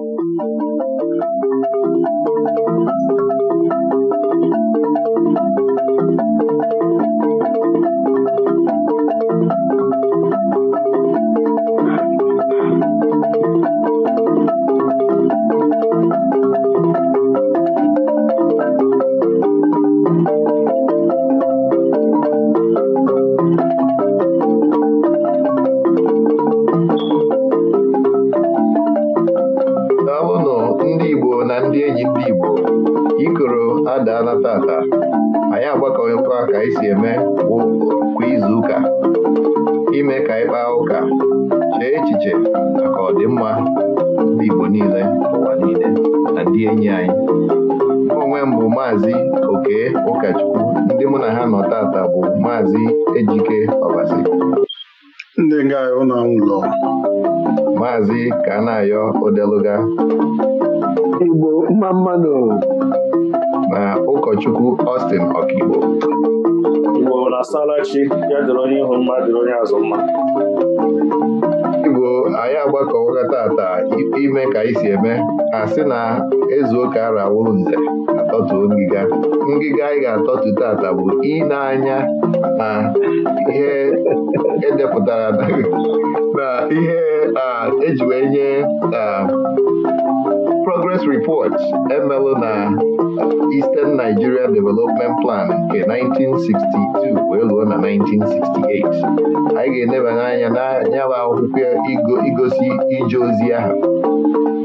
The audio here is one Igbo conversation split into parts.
eadodore chi ya dịrị onye ihu mma dịrị onye azụ mma igbo anyị agbakọwaga tata ime ka anyị si eme a sị na ezu ụka arawụrụ nze atọtuo ngịga ngịga anyị ga atọtụ tata bụ ịna-anya na ihe edepụtara na ihe eji wee nye Watch emelụ na Eastern Nigeria Development Plan nke 1962 wee lụọ na 1968 anyị ga-enebanye anya n'anyaba akwụkwọ igosi ije ozi ahụ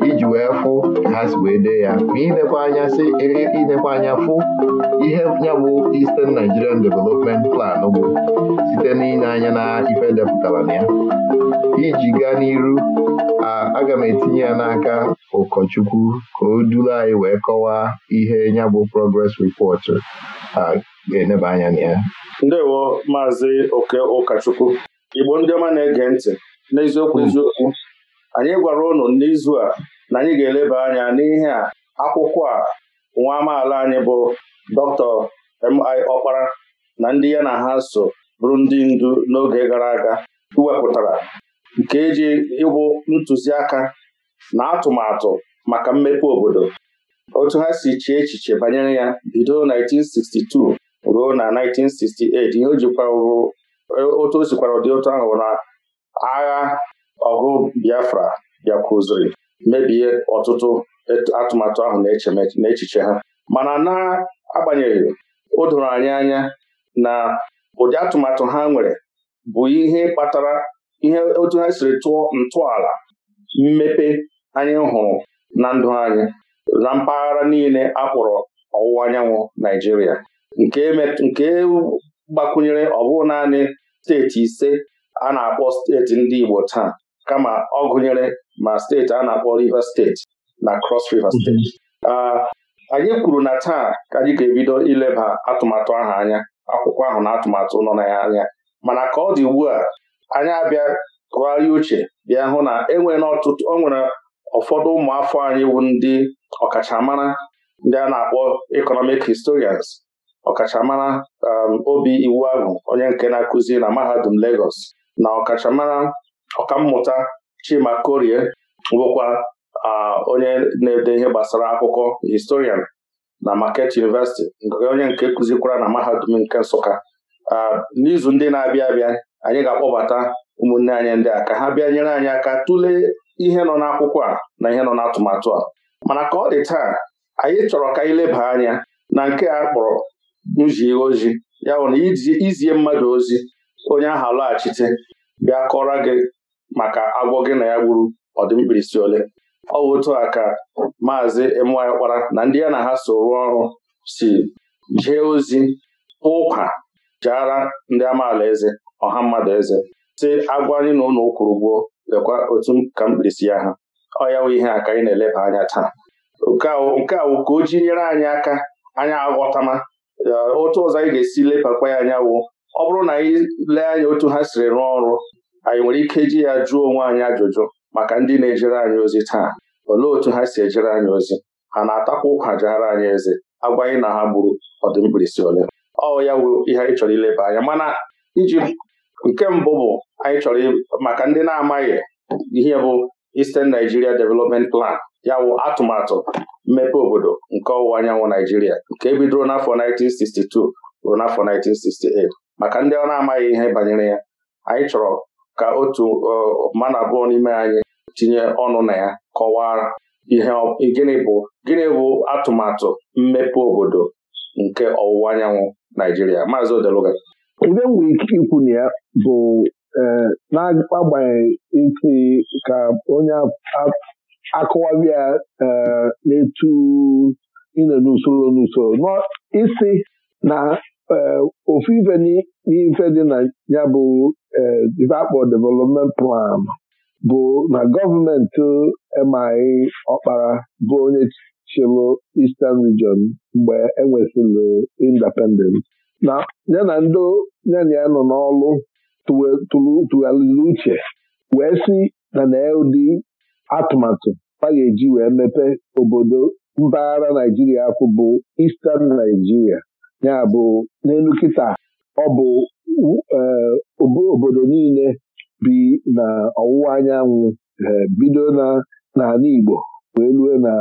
iji wee fụ ha si wee dee ya ma inekwa anya sị e, e, anya fụ ihe ya bụ Eastern Nigerian Development Plan bụ site n'inye anya na ife depụtara na ya iji gaa n'iru aga m etinye ya n'aka ụkọchukwu ka o duru anyị wee kọwaa ihe nyabụ bụ progress report a ga-eneba anya na ya ndewo maazị oke ụkọchukwu igbo ndị ọma na-ege ntị n'eziokwu hmm. eziokwu anyị gwara ụnụ n'izu a na anyị ga-eleba anya n'ihe a akwụkwọ a nwa amaala anyị bụ Dr. mi ọkpara na ndị ya na ha so bụrụ ndị ndu n'oge gara aga iwepụtara nke eji ịbụ ntụziaka na atụmatụ maka mmepe obodo otu ha si chie echiche banyere ya bido 1962 ruo na 1968 ihe o jikwa e, otu o sikwara ụdị otu ahụ na agha ọgụ Biafra bịakwuziri mebie ọtụtụ atụmatụ ahụ na echiche ha mana na-agbanyeghị o doro anyị anya na ụdị atụmatụ ha nwere bụ ihe kpatara ihe otu ha siri tụọ ntọala mmepe anyị hụrụ na ndụ anyị na mpaghara niile a ọwụwa anyanwụ Naijiria nke gbakwunyere ọ naanị steeti ise a na-akpọ steeti ndị Igbo taa kama ọ gụnyere ma steeti a na-akpọ Rivers steeti na Cross River steeti mhm. anyị kwuru na taa ka anyị ga-ebido ileba atụmatụ ahụ anya akwụkwọ ahụ na atụmatụ nọ na ya anya mana ka ọ dị ugbu a anyị abịa tụgharịa uche bịa hụ na enwere n'ọtụtụ o nwere ụfọdụ ụmụafọ anyị wụ ndị ọkachamara ndị a na-akpọ economic historians ọkachamara um, obi iwu agụ onye nke na-akụzi na mahadum Lagos na ọkachamara ọkammụta Chima Korie bụkwa onye na-ede ihe gbasara akụkọ historian na Market University onye nke kụzikwara na mahadum nke Nsụka n'izu ndị na-abịa abịa anyị ga-akpọbata ụmụnne anyị ndị a ka ha bịa nyere anyị aka tụlee ihe nọ n'akwụkwọ a na ihe nọ n'atụmatụ a mana ka ọ dị taa anyị chọrọ ka anyị leba anya na nke a kpọrọ nzie ozi ya bụ na izie mmadụ ozi onye ahụ alọghachite bịa kọrọ gị maka agwọ gị na ya gburu ọdịmkpirisi ole ọ bụ otu a ka maazị Ịmụanyịkpara na ndị ya na ha so rụọ ọrụ si jee ozi ụkwa jaara ndị amaala eze ọha mmadụ eze si agwa anyị na ụlọ kwụrụ ụgwọ lekwa otu ka mkpirisi ya ha ọ ya wụ ihe a ka anyị na-eleba anya taa nke a wụ ka o ji nyere anyị aka anyị aghọtama otu ọzọ anyị ga-esi lebakwa ya anya wụ ọ bụrụ na anyị lee anya otu ha siri rụọ ọrụ anyị nwere ike ji ya jụọ onwe anyị ajụjụ maka ndị na-ejere anyị ozi taa olee otu ha si ejere anyị ozi ha na-atakwa ụkwa jegara anyị eze agwa anyị na ha gburu ọdụmkpirisi ole ọ ya wụ ihe anyị chọrọ ileba anya mana iji nke mbụ bụ anyị chọrọ maka ndị na-amaghị ihe bụ Eastern Nigeria Development Plan ya wụ atụmatụ mmepe obodo nke ọwụwa anyanwụ Naijiria nke bidoro n'afọ 1962 ruo n'afọ 1968 maka ndị ọ na-amaghị ihe banyere ya anyị chọrọ ka otu mana abụọ n'ime anyị tinye ọnụ na ya kọwaa ihe gịnị bụ gịnị bụ atụmatụ mmepe obodo nke ọwụwa anyanwụ Naijiria maazị Odeluga ibe m nwere ike ikwu na ya bụ eh, n'agbanyeghị isi ka onye akụwabi ya eh, na-etu ịnọ n'usoro n'usoro isi na eh, ofu ife n'ife dị na ya bụ ife akpọ development plan bụ na gọọmenti emaghị ọkpara bụ onye chịlụ Eastern Region mgbe enwesịrị independent na ya na ndị nyana ya nọ n'ọlụ tụgharịrị uche wee si na na ụdị atụmatụ a ga-eji wee mepe obodo mpaghara Naijiria akwụ bụ Eastern Naijiria ya bụ n'elu kịta ọ bụ e, obodo niile bi na ọwụwa anyanwụ e, bido n'ala Igbo wee rue na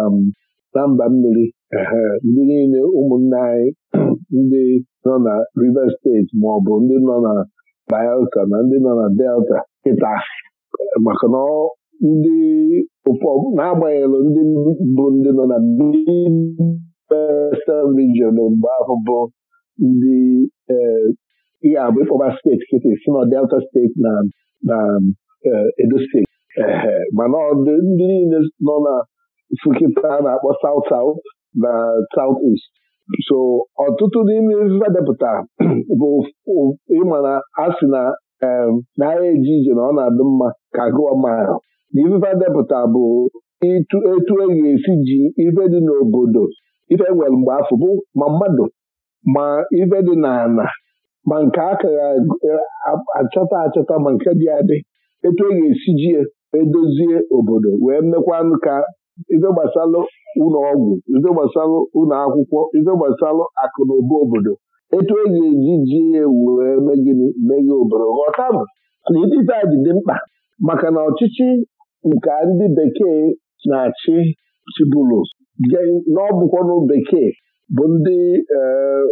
mba mmiri e, ndị niile ụmụnna anyị ndị nọ na Rivers steeti ma ọ bụ ndị nọ na Bayelsa na ndị nọ na Delta kịta maka na ndị ụfọdụ n'agbanyeghị ndị bụ ndị nọ na Western region mgbe ahụ bụ ndị ihe eh, abụ ịkpọba steeti kịta si na Delta steeti na na eh, Edo steeti mana ndị niile nọ na Nsukka na-akpọ South South na South East so ọtụtụ n'ime ife depụta bụ ịmana asị na n'agha eje ije na ọ na-adị mma ka gụọ mma na depụta bụ etu e ga-esi ji ife dị n'obodo ife e nwere mgbe afọ bụ ma mmadụ ma ife dị n'ala ma nke akara e, achọta achọta ma nke dị adị etu e ga-esi ji edozie obodo wee mekwanụ ka ife gbasalụ ụlọ ọgwụ ife gbasalụ ụlọ akwụkwọ ife gbasalụ akụ na ụba obodo etu e eji ji ewu wee megịnị meghe obodo ghọtabụ na ife a dị mkpa maka na ọchịchị nke ndị bekee na-achị chibụlụ n'ọbụkwanụ bekee bụ ndị eh,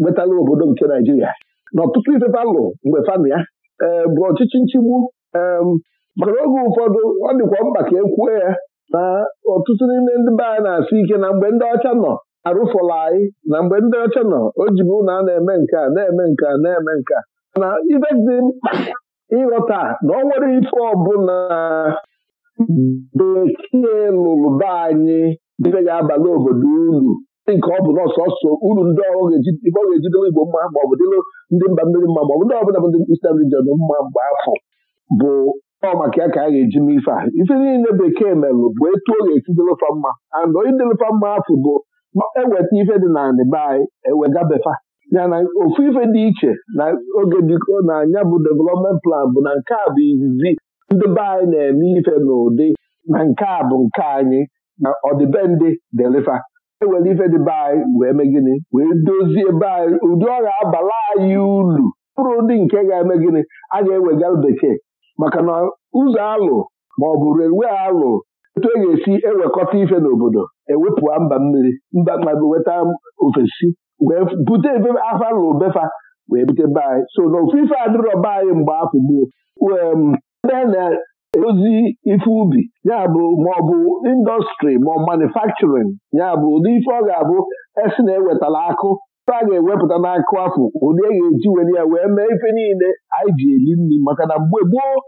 nwetara obodo nke Naijiria na ọtụtụ ifefa mgbe fami ya ee eh, bụ ọchịchị nchigbu eh, maka na oge ụfọdụ ọ dịkwa mkpa ka e kwuo ya na ọtụtụ n'ime ndị be anyị na-asị ike na mgbe ndị ọcha nọ arụfọla anyị na mgbe ndị ọcha nọ o jibu na a na-eme nke a na-eme nke a na-eme nke a na ife ịghọta na ọ nwere ife ọbụla bekee lụrụ be anyị ife ga-abalị obodo uru nke ọ bụ na ọsọsọ uru ndị ọrụ ife ọ ga-ejidere igbo mma ma ọ bụ ndị mba mmiri mma maọbụ ndị ọbụla bụ ndị Eastern region mma mgbe afọ bụ ọ maka ya ka a ga-eji mee ife a ife niile bekee merụ bụ etu ọ ga mma and idelufa mma afụ bụ eweta ife dị na e be anyị ewegabefa ya na ofu ife dị iche na oge dịko na anya bụ development plan bụ na nke a bụ izizi ndị be anyị na-eme ife n'ụdị na nke a bụ nke anyị na ọdịbendị delifa ewere ife dị anyị wee mee gịnị wee dozie be anyị ụdị ọ ga-abala anyị ulu mkpụrụ ndị nke ga-eme gịnị a ga-ewega bekee maka na ụzọ alụ ma ọ bụ relwe alụ etu e ga-esi ewekọta ife n'obodo ewepụa mba mmiri mba mmadụ weta ofesi wee bute ebe afa lụ befa wee bute be so na ofu ife adịrọ be anyị mgbe afọ gboo ebe na-edozi ife ubi ya bụ maọbụ indọstrị ma manufakturin ya bụ ụdị ife ọ ga-abụ esi na-ewetala akụ a ga-ewepụta n'akụ afọ ụdị a e ga-eji were ya wee mee ife niile anyị ji eri nri maka na mgbe gboo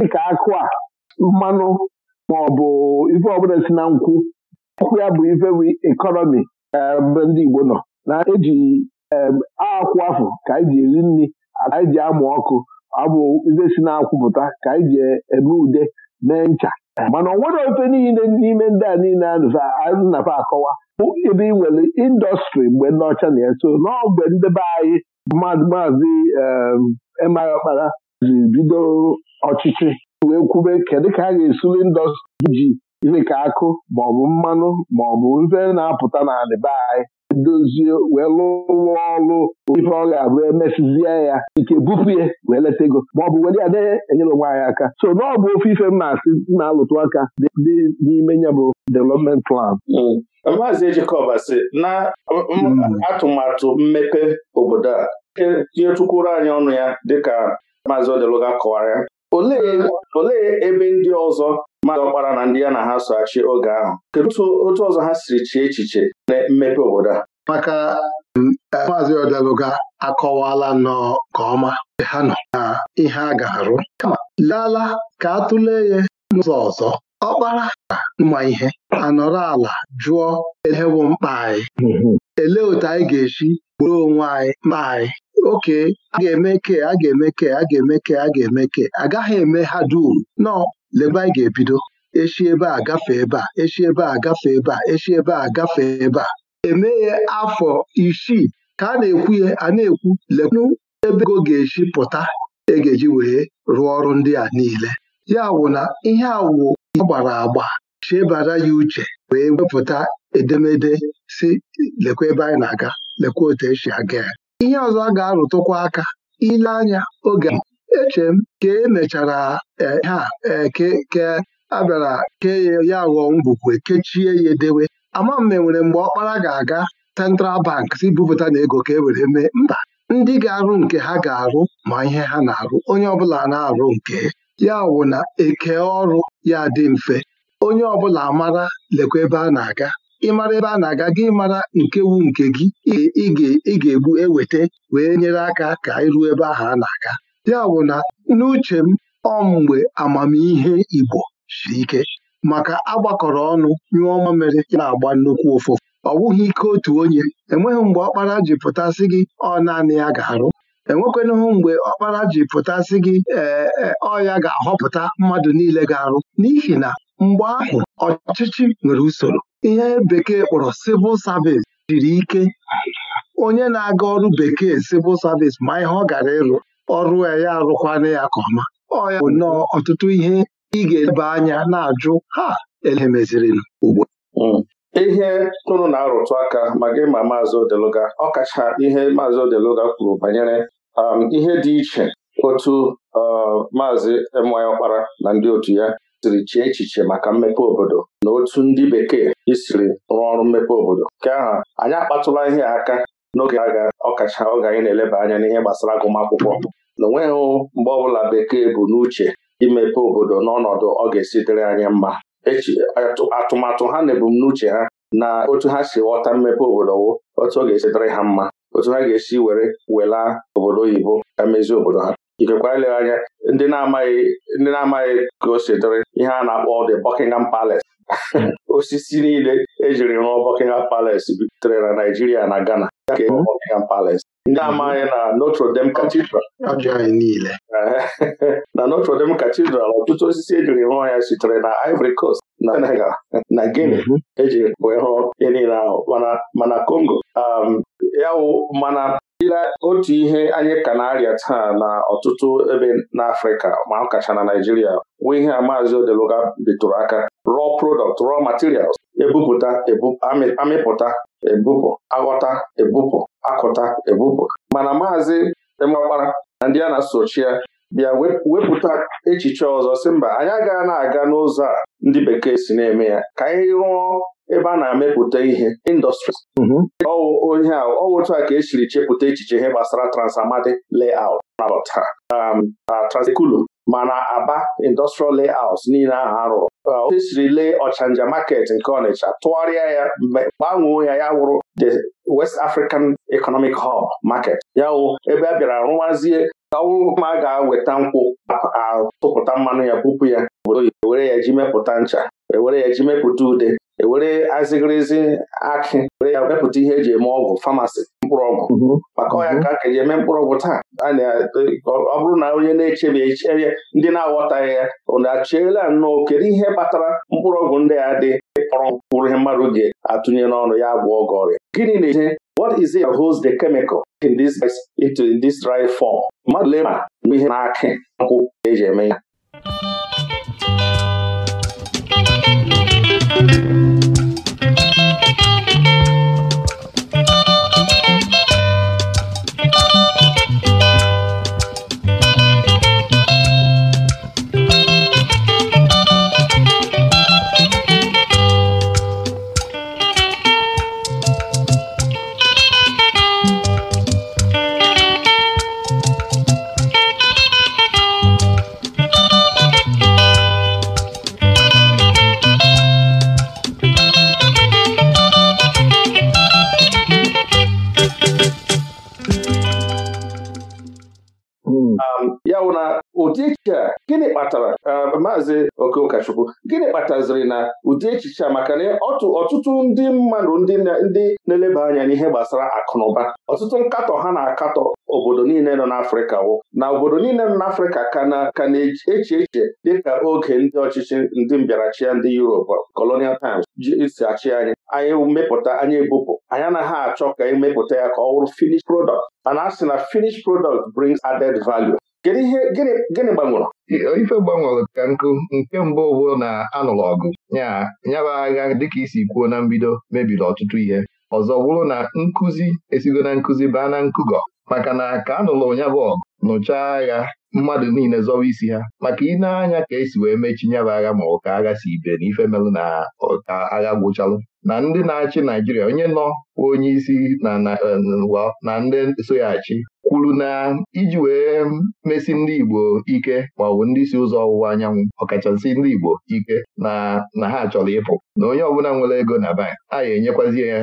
dịka akụ a mmanụ ma ọ bụ ife ọbụla si na nkwụ nkwụ ya bụ ife bụ ekọnọmi eh, mgbe ndị Igbo nọ na-eji eh, akwụ afọ ka anyị ji eri nri anyị ji amụ ọkụ abụ ife si na akwụpụta ka anyị ji e, eme ude mee ncha mana ọ nwere ofe niile n'ime ndị a niile anaba akọwa bụ ebe nwere indọstrị mgbe ndị na-eso n'ogbe ndebe anyị maazị ehm, emeghị ọkpara ji bido ọchịchị wee kwube kedụ ka a ga-esuli indọstrị ji dịka akụ maọbụ mmanụ maọbụ nze na-apụta na be anyị dozie wee lụwa ọrụ ife ọ ga-abụ emesizie ya ike bupụ ya wee leta ego maọbụ were ya na-enyere onwe anyị aka so na ọ bụ ofe ife m na-asị na-alụtụ aka dị n'ime ya bụ development plan hmm. Maazị Ejikọba sị na hmm. atụmatụ mmepe obodo a e, tinyetukwuru anyị ọnụ ya dịka Maazị Odeluga kọwara ya olee ebe ndị ọzọ mmadụ ọkpara na ndị ya na ha so achị oge ahụ kedu otu ọzọ ha siri chie echiche na mmepe obodo a maka mm, e, maazị ọdalụga akọwala nnọọ nke ọma ha nọ na ihe a ga-arụ kama lala ka a tụlee ya n'ụzọ ọzọ ọkpara na mma ihe anọrọ ala jụọ elewu mkpa anyị hmm, hmm. elee otu anyị ga-esi gboro onwe anyị mkpa anyị oke a ga-eme ke a ga-eme ke a ga-eme ke a ga-eme ke agaghị eme ha dum nọ lebe anyị ga-ebido echi ebe a gafee ebe a echi ebe a gafee ebe a echi ebe a gafee ebe a emeghe afọ isii ka a na-ekwu ya a na-ekwu lekwu ebe ego ga-esi pụta e ji eji wee rụọ ọrụ ndị a niile ya wụ na ihe awụ gbara agba chebara ya uche wee wepụta edemede si lekwa ebe anyị na-aga lekwa otu esi aga ya ihe ọzọ a ga-arụtụkwa aka ile anya oge eche m ka e mechara e, ha e, ke abịara ka kee ya ghọọ ngwukwe kechie ya edewe ama e nwere mgbe ọkpara ga-aga Central Bank si bupụta na ego ka e were mee mba ndị ga-arụ nke ha ga-arụ ma ihe ha na-arụ onye ọbụla na-arụ nke ya wụ na eke ọrụ ya dị mfe onye ọbụla mara lekwa ebe a na-aga ịmara ebe a na-aga gị mara nke wu nke gị ị ga-egbu eweta wee nyere aka ka anyị ebe ahụ a na-aga ya bụ na n'uche m ọ amamihe Igbo siri ike maka agbakọrọ ọnụ nyụọ mamịrị na-agba nnukwu ụfụ ọ bụghị ike otu onye enweghị mgbe ọkpara ji pụtasị gị ọ naanị ya ga-arụ enwekwanụhụ mgbe ọkpara ji pụtasị gị e, e, ọ ya ga-ahọpụta mmadụ niile ga-arụ n'ihi na mgbe ahụ ọchịchị nwere usoro ihe bekee kpọrọ civil service jiri ike onye na-aga ọrụ bekee civil service ma ihe ọ gara ịrụ ọrụ ya arụkwana ya ka ọma ọ ya bụ nnọọ ọtụtụ ihe ị ga-ebe anya na-ajụ ha elemeziri ugbo hmm. ihe tụrụ na-arụtụ aka ma gị ma maazị Odeluga ọkacha ihe maazị Odeluga kwuru banyere um, ihe dị iche otu uh, maazị my ọkpara na ndị otu ya siri chee echiche maka mmepe obodo na otu ndị bekee isiri rụọ ọrụ mmepe obodo nke ahụ anyị akpatụla ihe aka n'oge aga ọkacha oge anyị na-eleba anya n'ihe gbasara agụmakwụkwọ na onweghị mgbe ọbụla bekee bụ n'uche imepe obodo n'ọnọdụ ọ ga-esi dịrị anyị mma atụmatụ ha na ebumnuche ha na otu ha si ghọta mmepe obodo wụ otu ọ ga-esi dịrị ha mma otu ha ga-esi were welaa obodo oyibo mezie obodo ha ikekwa eleghị anya ndị na-amaghị ndị na-amaghị ka o si ihe a na-akpọ the Buckingham Palace osisi niile ejiri rụọ Buckingham Palace bitere na Naijiria na Ghana ke mhm. Buckingham Palace ndị mhm. amaghị na Notre Dame Cathedral na Notre Dame Cathedral ọtụtụ osisi ejiri rụọ ya sitere na Ivory Coast na Senegal na Guinea mhm. ejiri wee rụọ ihe niile ahụ mana Congo um, ya wụ mana ile otu ihe anyị ka na-arịa taa na ọtụtụ ebe n'Afrịka ma ọ kacha na Naijiria nwee ihe a maazị Odeluga bitụrụ aka raw product raw materials ebupụta amịpụta ebupụ aghọta ebupụ akụta ebupụ mana maazị Emeọkpara na ndị a na-asochi ya bịa wepụta echiche ọzọ sị mba anyị agaghị na-aga n'ụzọ a ndị bekee si na-eme ya ka anyị rụọ ebe a na-amepụta ihe indọstries mhm. onye ahụ ọ otu a ka esiri chepụta echiche ihe gbasara transamadi layout um, uh, transekulum mana aba industrial layouts niile ahụ arụrụ uh, otu esiri lee ọchanja market nke Ọnịcha tụgharịa ya gbanwee ya ya wụrụ the West African Economic Hub market ya wụ ebe a bịara rụwazie ka ma a ga aweta nkwụ atụpụta mmanụ ya bupụ ya obodo e were ya ji mepụta ncha ewere ya ji mepụta ude ewere azịgịrịzị akị e were ya mepụta ihe eji eme ọgwụ famasi mkpụrụ ọgwụ mhm. maka ọya mhm. ka ka eji eme mkpụrụ ọgwụ taa ọ bụrụ na onye na-echebe eche ndị na-aghọtaghị ya ụna achiela nnọọ kedu ihe kpatara mkpụrụ ọgwụ ndị a dị kpọrọ mkpụrụ ihe mmadụ ga-atụnye n'ọnụ ya gwọ ọgọ ọrịa gịnị na-eche what is in this it form mmadụ lee ma mgbe ihe na akị nkwụ eji eme ya maazị okeụkachukwu gịnị kpataziri na ụdị echiche a maka na ọtụtụ ndị mmadụ ndị na-eleba anya n'ihe gbasara akụnụba ọtụtụ nkatọ ha na-akatọ obodo niile nọ n'Afrịka wụ na obodo niile nọ n'Afrịka ka na-eche eche dịka oge ndị ọchịchị ndị mbịarachia ndị Europe colonial times ji si achị anyị anyị mepụta anyị ebupụ anyị ha achọ ka emepụta ya ka ọ wụrụ finish product mana a sị na finish product brings added value Kedu ihe gịnị gbanwere? ife gbanwere ka nkụ nke mbụ bụ na anụrụ ọgụ nyaba agha dịka isi kwuo na mbido mebiri ọtụtụ ihe ọzọ bụrụ na nkụzi esigo na nkụzi baa na nkụgọ maka na ka anụrụ nyaba ọgụ nụchaa agha mmadụ niile zọwa isi ha maka ịna anya ka esi wee mechi nyaba agha ma ọ ka agha si ibe na ife melụ na ọka agha gwụchalụ na ndị na-achị Naijiria onye nọ onye isi na ndị na ndị kwuru na iji wee mesi ndị Igbo ike ma ọ bụ ndị si ụzọ ọwụwa anyanwụ ọkachasị ndị Igbo ike na ha chọrọ ịpụ na onye ọbụla nwere ego na bank a ya enyekwazie ya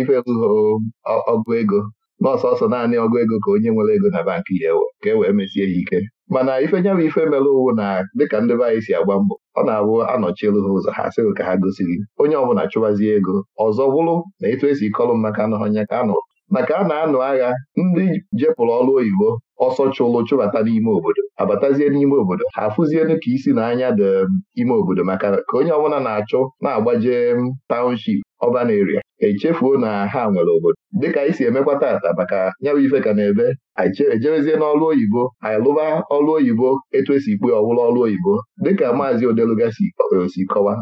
ife ọgụ ego n'ọsọsọ naanị ọgụ ego ka onye nwere ego na bank ya ka e wee mesie ya ike mana ife nya ife mere owu na dịka ndị be anyị si agba mbọ ọ na-abụ anọchielu ha ụzọ ha sịghị ka ha gosiri onye ọbụla chụwazie ego ọzọ bụrụ na etu esi kọlụ maka anọhọnya ka anụ maka a na-anụ agha ndị jepụrụ ọrụ oyibo ọsọ chụlụ chụbata n'ime obodo abatazie n'ime obodo ha afụzielu ka isi n'anya dị um, ime obodo maka ka onye ọbụla na-achụ na-agbaje um, taụnship ọban eria echefuo na ha nwere obodo dịka anyị si emekwa taata maka ya ife ka na-ebe anyị n'ọlụ oyibo anyị lụba ọlụ oyibo etu esi ikpe ọwụla ọlụ oyibo dịka maazị odeluga si kọwa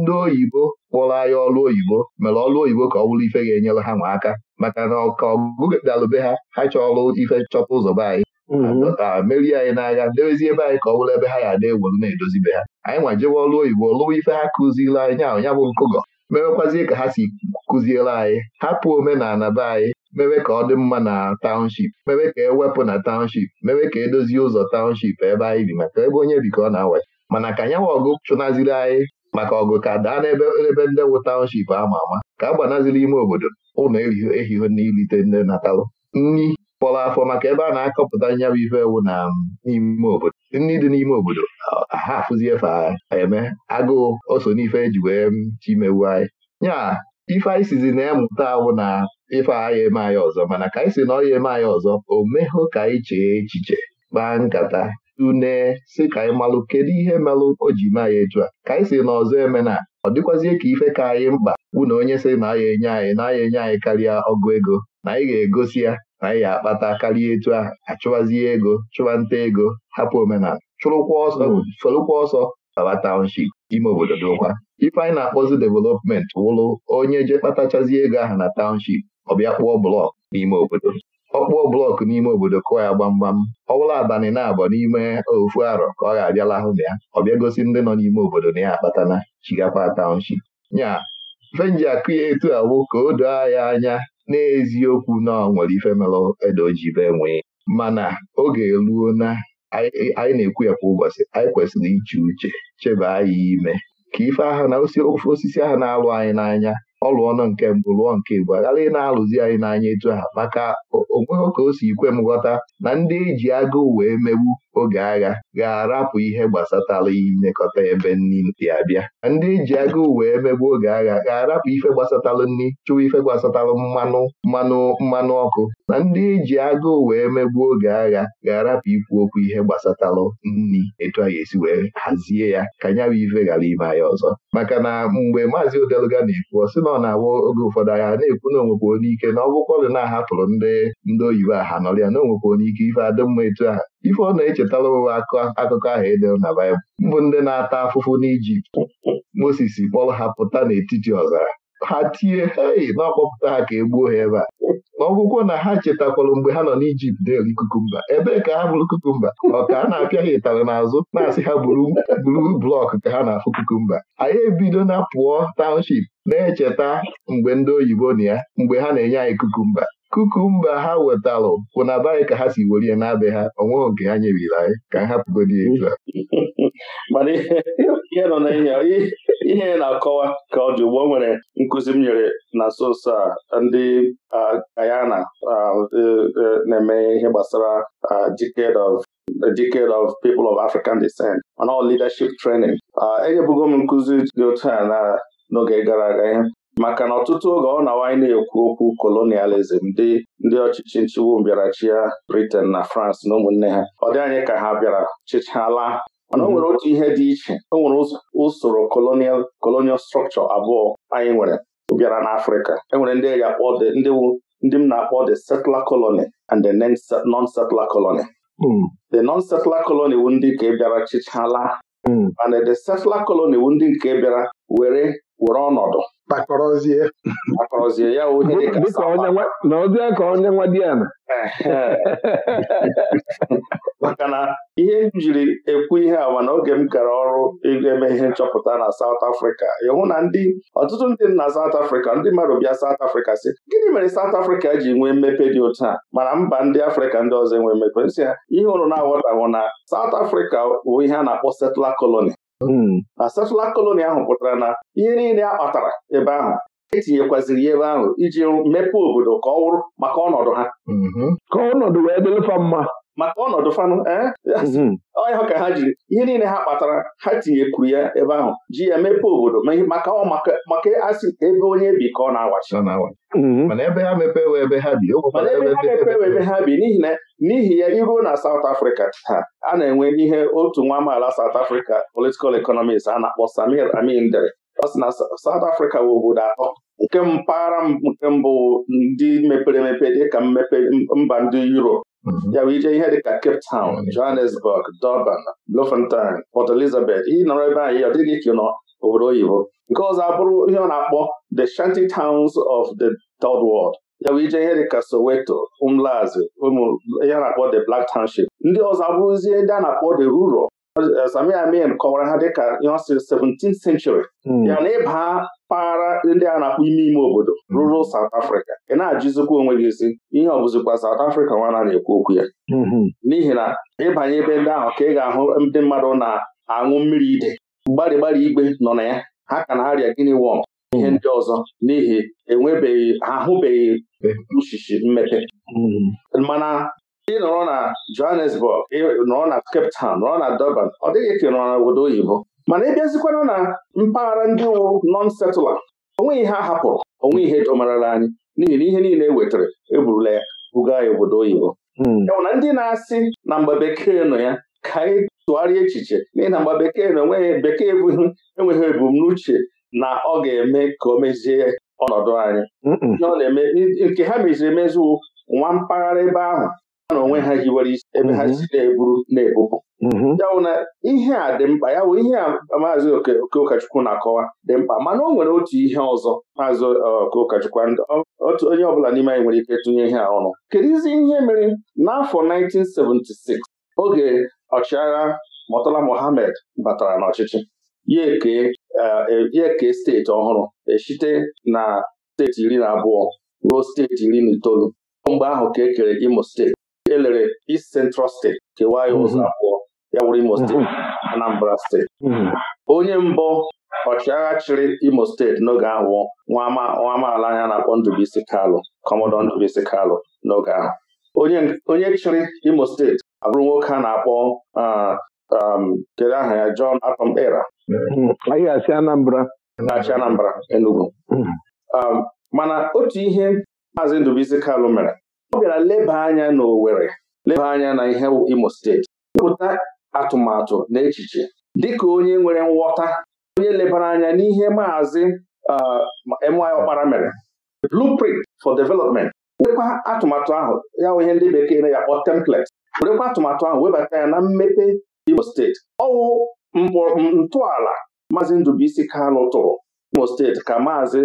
ndị oyibo kpụrụ anyị ọlụ oyibo mere ọlụ oyibo ka ọ ife ga-enyere ha nwaaka aka maka na ọka ọgụgụ dalụbe ha ha chọọlụ ife chọta ụzọ be anyị mm-hmm. merie anyị n'agha debezie ebe anyị ka ọ bụrụ ebe ha ya na-ewolu na-edozibe ha anyị nwa jewe ọlụ oyibo lụwa ife ha kụziri anyị nya bụ nkụgọ mewekwazie ka ha si kụziere anyị hapụ omenala be anyị mewe ka ọ dị mma na taụnship mewe ka ewepụ na taụnship mewe ka edozie ụzọ taụnship ebe anyị bi maka ebe onye bi ka ọ na-awa mana ka nyanwa ọgụ chụnaziri anyị maka ọgụ ka daa n'ebe ebe ndị wụ taụnship ama ama ka a gbanaziri ime obodo ụlọ ehihie n'ilite ndị natalụ nri kpọrọ afọ maka ebe a na-akọpụta nyabụ ife ewu na um, n'ime obodo ndị dị n'ime obodo um, ha afụzie fa eme agụụ oso n'ife eji wee um, chimewu anyị nya ife anyị sizi na-emụta awụ na ife agha eme anyị ọzọ mana ka anyị si na ọya eme anyị ọzọ o mehụ ka anyị chee echiche kpaa nkata tune si ka anyị malụ kedu ihe melụ o ji me anyị etu a ka anyị si na ọzọ eme na ọ dịkwazie ka ife ka anyị mkpa wụ na onye sị na aya enye anyị na aya enye anyị karịa ọgụ ego na anyị ga-egosi ya na ga-akpata karịa etu ahụ achụwazie ego chụwa nta ego hapụ omenala chụrụkwa ọsọ folụkwa hmm. ọsọ baba township ime obodo dokwa ifeanyị anyị na-akpọzi development wụrụ onye je kpatachazie ego ahụ na township ọ bịa kpụọ blọk n'ime obodo ọkpụọ blọk n'ime obodo kụọ ya gbamgbam ọbụla bụla abalị na-abọ n'ime ofu arọ ka ọ ga-abịala ahụ na ya ọ bịa gosi ndị nọ n'ime obodo na ya akpatana chigakwa township nya fenji akụ ya etu awụ ka o doo ya anya n'eziokwu na ọ nwere ife melụ ede oji be nwee mana oge ruo na anyị na-ekwu ya kwa ụbọchị anyị kwesịrị iche uche chebe anyị ime ka ife aha na osisi ahụ na-alụ anyị n'anya Ọlụ ọnụ nke mbụ lụọ nke mbụ aghara ị na-alụzi anyị n'anya etu ha maka onweghị ka o si ikwe m ghọta na ndị eji agụụ wee megbu oge agha ga-arapụ ihe gbasatara inekọta ebe nni dị abịa ndị ji agụụ wee megbu oge agha ga-arapụ ife gbasatalụ nni chụwa ife gbasatalụ mmanụ mmanụ mmanụ ọkụ na ndị ji agụụ wee megbu oge agha ga-arapụ ikwu okwu ihe gbasatalụ nni etu a ga-esi wee hazie ya ka ya bụ ife ghara ime anyị ọzọ maka na mgbe maazị Odeluga na-ekwu ọ sị na ọ na-awa oge ụfọdụ agha na-ekwu na onwekwa onye ike na ọ dị na-ahapụrụ ndị ndị oyibo aha nọrịa na onwekwa onye ike ife adị etu a ife ọ na-echetara m akụkọ ahụ edere na Baịbụl mbụ ndị na-ata afụfụ n'Ijipt Moses kpọrọ ha pụta n'etiti ọzara ha tie hei na ọkpọpụta ha ka e gbuo ha ebe a n'ọgwụgwọ na ha chetakwara mgbe ha nọ n'Ijipt na-eri kukumba ebee ka ha bụrụ kukumba ọ ka a na-apịa ha ịtarị n'azụ na-asị ha buru blọk ka ha na-afụ kukumba anyị ebido na pụọ taụnship na-echeta mgbe ndị oyibo na ya mgbe ha na-enye anyị kukumba kukumba ha wetalụ kwụ na be ka ha si werie na be ha onweghị nke ha nyebiri anyị ka hapụgodi etu a na ihe nọ ihe na-akọwa ka ọ dị ugbo nwere nkụzi m nyere na nso nso a ndị Guyana e, e, na-eme ihe gbasara decade of a of people of African descent mana leadership training enyebugo m nkụzi dị otu a na n'oge gara aga ihe. maka na ọtụtụ oge ọ na-awanye na-ekwu okwu kolonializm ndị ndị ọchịchị nchịgbu mbịarachi ya Britain na France na ụmụnne ha ọ dị anyị ka ha bịara chịchala mana o mhm. nwere otu ihe dị iche o nwere usoro colonial colonial structure abụọ anyị nwere bịara na n'Afrịka enwere ndị ndị m na-akpọ the settler colony and the non-settler colony hmm. the non-settler colony wu ndị nke bịara chịchala mana hmm. the settler colony wu ndị nke bịara were were ọnọdụ kpakọrọzie ya onye dịka ka onye nwa di maka na ihe m jiri ekwu ihe a mana oge m gara ọrụ eme ihe nchọpụta na South Africa ịhụ na ndị ọtụtụ ndị na South Africa ndị mmadụ bịa South Africa si gịnị mere South Africa ji nwee mmepe dị otu a mana mba ndị Afrịka ndị ọzọ enwe mmepe nsị ihe ụrụ na-aghọtahụ na South Africa bụ ihe a na-akpọ settler colony Hmm. na satellite koloni ahụ pụtara na ihe niile a kpatara ebe ahụ etinyekwaziri ya ebe ahụ iji mepee obodo ka ọ wụrụ maka ọnọdụ ha mhm. ka ọnọdụ wee dịrịfa mma maka ọnọdụ fanụ eh? mm-hmm. ọnya ka ha jiri ihe niile ha kpatara ha tinyekwuru ya ebe ahụ ji ya mepee obodo maka maka asị ebe onye bi ka ọ na-awachi mm-hmm. mana ebe ha ebe ha bi n'ihi na n'ihi ya iruo na South Africa ha a na-enwe n'ihe otu nwa amaala South Africa political economist a na-akpọ Samir Amin dere ọ sị na South Africa bụ obodo atọ nke mpaghara nke mbụ ndị mepere emepe dịka mmepe mba ndị Europe ya ije ihe ka Cape Town mm-hmm. Johannesburg Durban Bloemfontein Port Elizabeth ị nọrọ ebe anyị ọ dịghị obodo oyibo nke ọzọ abụrụ ihe ọ na-akpọ the shanty towns of the third world ya ije ihe dịka Soweto Umlazi ụmụ ihe a na-akpọ the Black Township ndị ọzọ abụrụzie ndị a na-akpọ the rural Sami Amin kọwara ha dịka ihe ọ sịrị 17 hmm. ya na ịba mpaghara ndị a na-akpọ ime ime obodo hmm. rural South Africa ị na-ajụzikwa onwe gị isi ihe ọ bụzikwa South Africa nwana na-ekwu okwu ya hmm. n'ihi na ịbanye ebe ndị ahụ ka ị ga-ahụ ndị mmadụ na-aṅụ mmiri ide gbarịgbarị igwe nọ na ya ha ka na-arịa gịnị wọm ihe ndị ọzọ n'ihi enwebeghị ahụbeghị uchichi mmepe mana ndị nọrọ na Johannesburg nọrọ na Cape Town nọrọ na Durban ọ dịghị ka ị nọrọ na obodo oyibo mana ị bịazikwana na mpaghara ndị wụ non setụla onwe ihe a hapụrụ onwe ihe jọmarala anyị n'ihi na ihe niile e wetara eburula ya buga ya obodo oyibo enwụ hmm. na ndị na-asị na mgbe bekee nọ ya ka anyị tụgharịa echiche n'ihi na mgbe bekee na enweghị bekee ebughị enweghị ebumnuche na ọ ga-eme ka o mezie ọnọdụ anyị nke ha meziri emezu nwa mpaghara ebe ahụ na onwe ha hiwere isi ebe ha mhm. si na-eburu na-ebupụ mhm. ya na ihe a dị mkpa ya bụ ihe a maazị oke ụkọchukwu na-akọwa dị mkpa mana o nwere otu ihe ọzọ maazị e, oke ụkọchukwu otu onye ọbụla n'ime anyị nwere ike tụnye ihe a ọnụ kedizi ihe mere n'afọ 1976 oge ọchịagha Murtala Mohammed batara n'ọchịchị ya eke e, e, steeti ọhụrụ esite na steeti iri na abụọ ruo steeti iri na itoolu mgbe ahụ ka e kere Imo steeti elere East Central steeti kewa ya mm-hmm. ụzọ abụọ ya wụrụ Imo steeti mm-hmm. Anambra steeti mm-hmm. onye mbụ ọchịagha chịrị Imo steeti n'oge ahụ nwa amaala anya na-akpọ Ndụbụisi Kalụ Kọmọdọ Ndụbụisi Kalụ n'oge ahụ onye chịrị Imo steeti abụrụ nwoke a na-akpọ um, kedu aha ya John Atom Era achị Anambra Enugu um, mana otu ihe Maazị Ndụbụisi Kalụ mere ọ bịara leba anya n'Owerri. leba anya na ihe Imo steeti wepụta atụmatụ na echiche dịka onye nwere nghọta onye lebara anya n'ihe maazị my ọkpara mere blueprint for development werekwa atụmatụ ahụ ya ihe ndị bekee na ya kpọ template werekwa atụmatụ ahụ webata ya na mmepe Imo steeti ọwụ ntọala maazị Ndubuisi Kalụ tụrụ Imo steeti ka maazị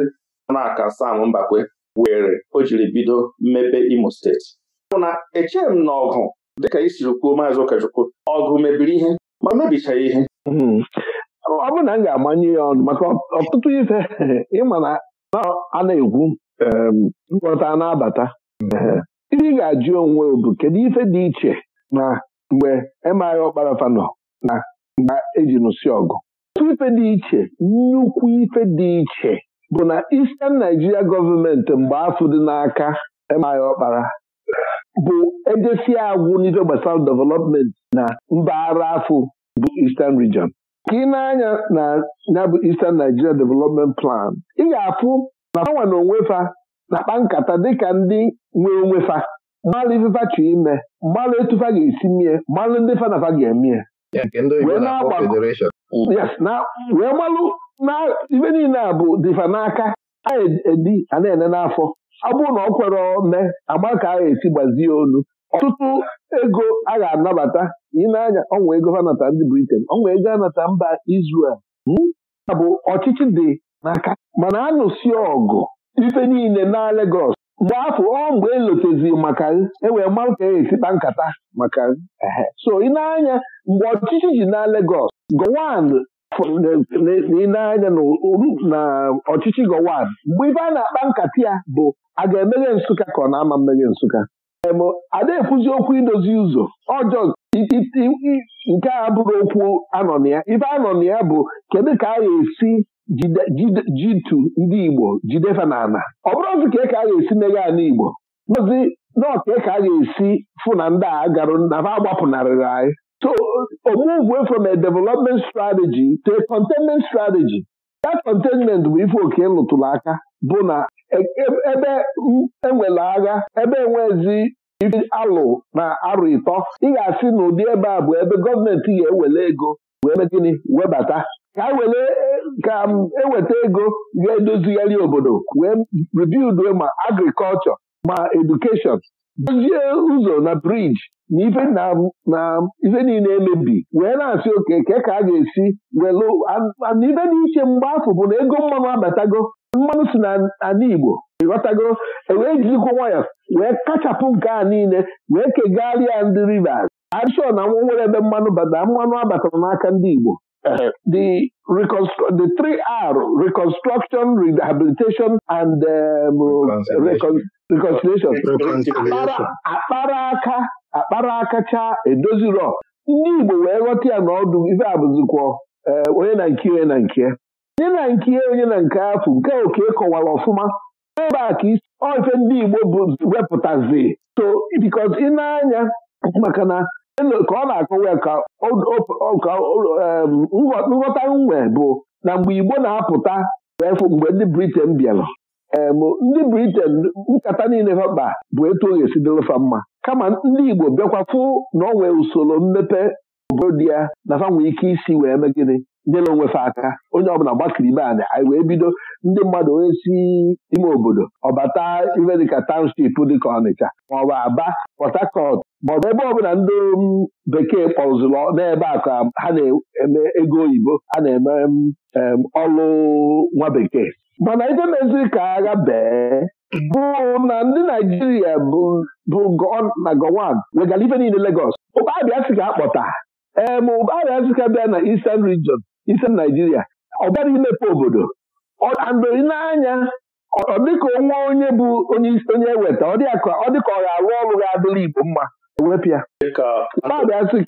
Ọnaka Sam Mbakwe were o jiri bido mmepe Imo steeti ọ bụ na echeghị m na ọgụ dịka isiri kwuo maazị ụkọchukwu ọgụ mebiri ihe ma mebichaghị ihe hmm. ọ bụ na m ga-amanye ya ọnụ maka ọtụtụ ife ịma na a na-ekwu nghọta na-abata ndị ga-ajụ onwe bụ kedu ife dị iche na mgbe emaghị ọkparafa nọ na mgbe eji nụsị ọgụ otu ife dị iche nnukwu ife dị iche bụ na Eastern Nigeria gọọmenti mgbe afọ dị n'aka emaya ọkpara bụ edesi agwụ n'ife gbasara development na mpaghara afọ bụ Eastern Region ka ị na-anya na ya bụ Eastern Nigeria Development Plan ị ga-afụ na fanwa na onwefa na-akpa nkata dịka ndị nwe onwefa mmalụ ifefa chọ ime mmalụ etufa ga-esi mie mmalụ ndị fanafa ga-emie wee malụ ibe niile a bụ dịfa n'aka anyị edi a na-ene n'afọ Abụ na ọ kwere ome agba ka a ga-esi gbazie olu ọtụtụ ego a ga-anabata ị na ọnwa ego ha ndị Britain ọnwa ego anata mba Israel hmm? a bụ ọchịchị dị n'aka mana a nụsi ọgụ ife niile na Lagos mgbe afọ ọ mgbe elotezi maka ewee mmanụ ka e esikpa nkata maka so ị na mgbe ọchịchị ji na Lagos gọwan n'ile anya na ọchịchị Gowon mgbe ibe a na-akpa nkata ya bụ a ga-emeghe Nsụka ka ọ na-ama mmeghe Nsụka ada-ekwuzi okwu idozi ụzọ ọjọọ nke a bụrụ okwu anọ na ya ibe anọ na ya bụ kedu ka a ga-esi jitu ndị Igbo jidefa na ana ọ bụrụ ozi ka ka a ga-esi meghe ana Igbo ozi na ọka ka a ga-esi fụ na ndị a garụ na ha agbapụnarịrị anyị So a uh, move away from a development strategy to a containment strategy that containment bụ ife oke lụtụrụ aka bụ na e, e, ebe enwere agha ebe enwezi ife alụ na arụ ịtọ ị ga-asị na ụdị ebe a bụ ebe gọọmenti ga ewele ego wee gịnị webata ka eweta e ego ga-edozigharị obodo wee rebuild ma agrikọlchọ ma edukeshọn dozie ụzọ na briji na ife na ife niile emebi wee na-asị oke ke ka a ga-esi welụ na ife dị iche mgbe afọ bụ na ego mmanụ abatago mmanụ si na ana Igbo ịghọtago ewee jizikwa nwayọọ wee kachapụ nke a niile wee kegharịa ndị Rivers adịshọ na nwa nwere ebe mmanụ bata mmanụ abatara n'aka ndị Igbo Uh, the reconstru- the three R reconstruction, rehabilitation, and um, reconciliation. reconciliation. akpara aka akpara aka chaa ndị Igbo wee ghọta ya n'ọdụ ife abụzikwọ uh, onye na nke onye na nke onye na nke onye na nke afụ nke oke kọwara ọfụma ebe a ka isi ife ndị Igbo bụ wepụtazi so because ị na-anya maka na ka ọ na-akọwa ya ka nghọta nwe bụ na mgbe Igbo na-apụta mgbe ndị Britain bịara ndị Britain nkata niile ha bụ etu o ga-esi dịlụfa mma kama ndị Igbo bịakwa fụ na ọ nwee usoro mmepe obodo ya na fa nwee ike isi wee mee gịnị nyere onwefe aka onye ọbụla gbakiri ibe anyị wee bido ndị mmadụ onye si ime obodo ọbata ife dịka township dịka Ọnịcha maọbụ Aba Port Harcourt maọbụ ebe ọbụla ndị um, bekee kpọzụlụ n'ebe a ka ha na-eme ego oyibo a na-eme um, um, ọlụ nwa bekee mana ije meziri ka agha bee bụ na ndị Naijiria bụ na Gowon wegara ife niile Lagos ụkpabịa si ka akpọta ee ma ụkpabịa si ka bịa na Eastern Region Eastern Naijiria ọ bịara imepe obodo mgbe ị na-anya ọ dịka onwe onye bụ onye onye eweta ọ dịka ọ ga-arụ ọrụ ga-adịla Igbo mma ewepịa ụkpabiasị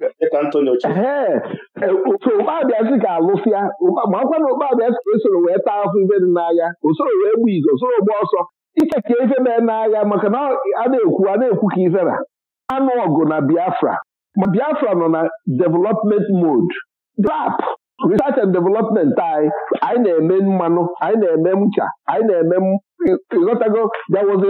e, ka alụsịa makwa na ụkpabiasị esoro wee taa afọ ife dị n'agha osoro wee gbu izu osoro gba ọsọ iche ka ife mee n'agha maka na a na-ekwu a na-ekwu ka ife na anụ ọgụ na Biafra ma Biafra nọ na development mod. rap research and development anyị anyị na-eme mmanụ anyị na-eme ncha anyị na-eme ịghọtago there was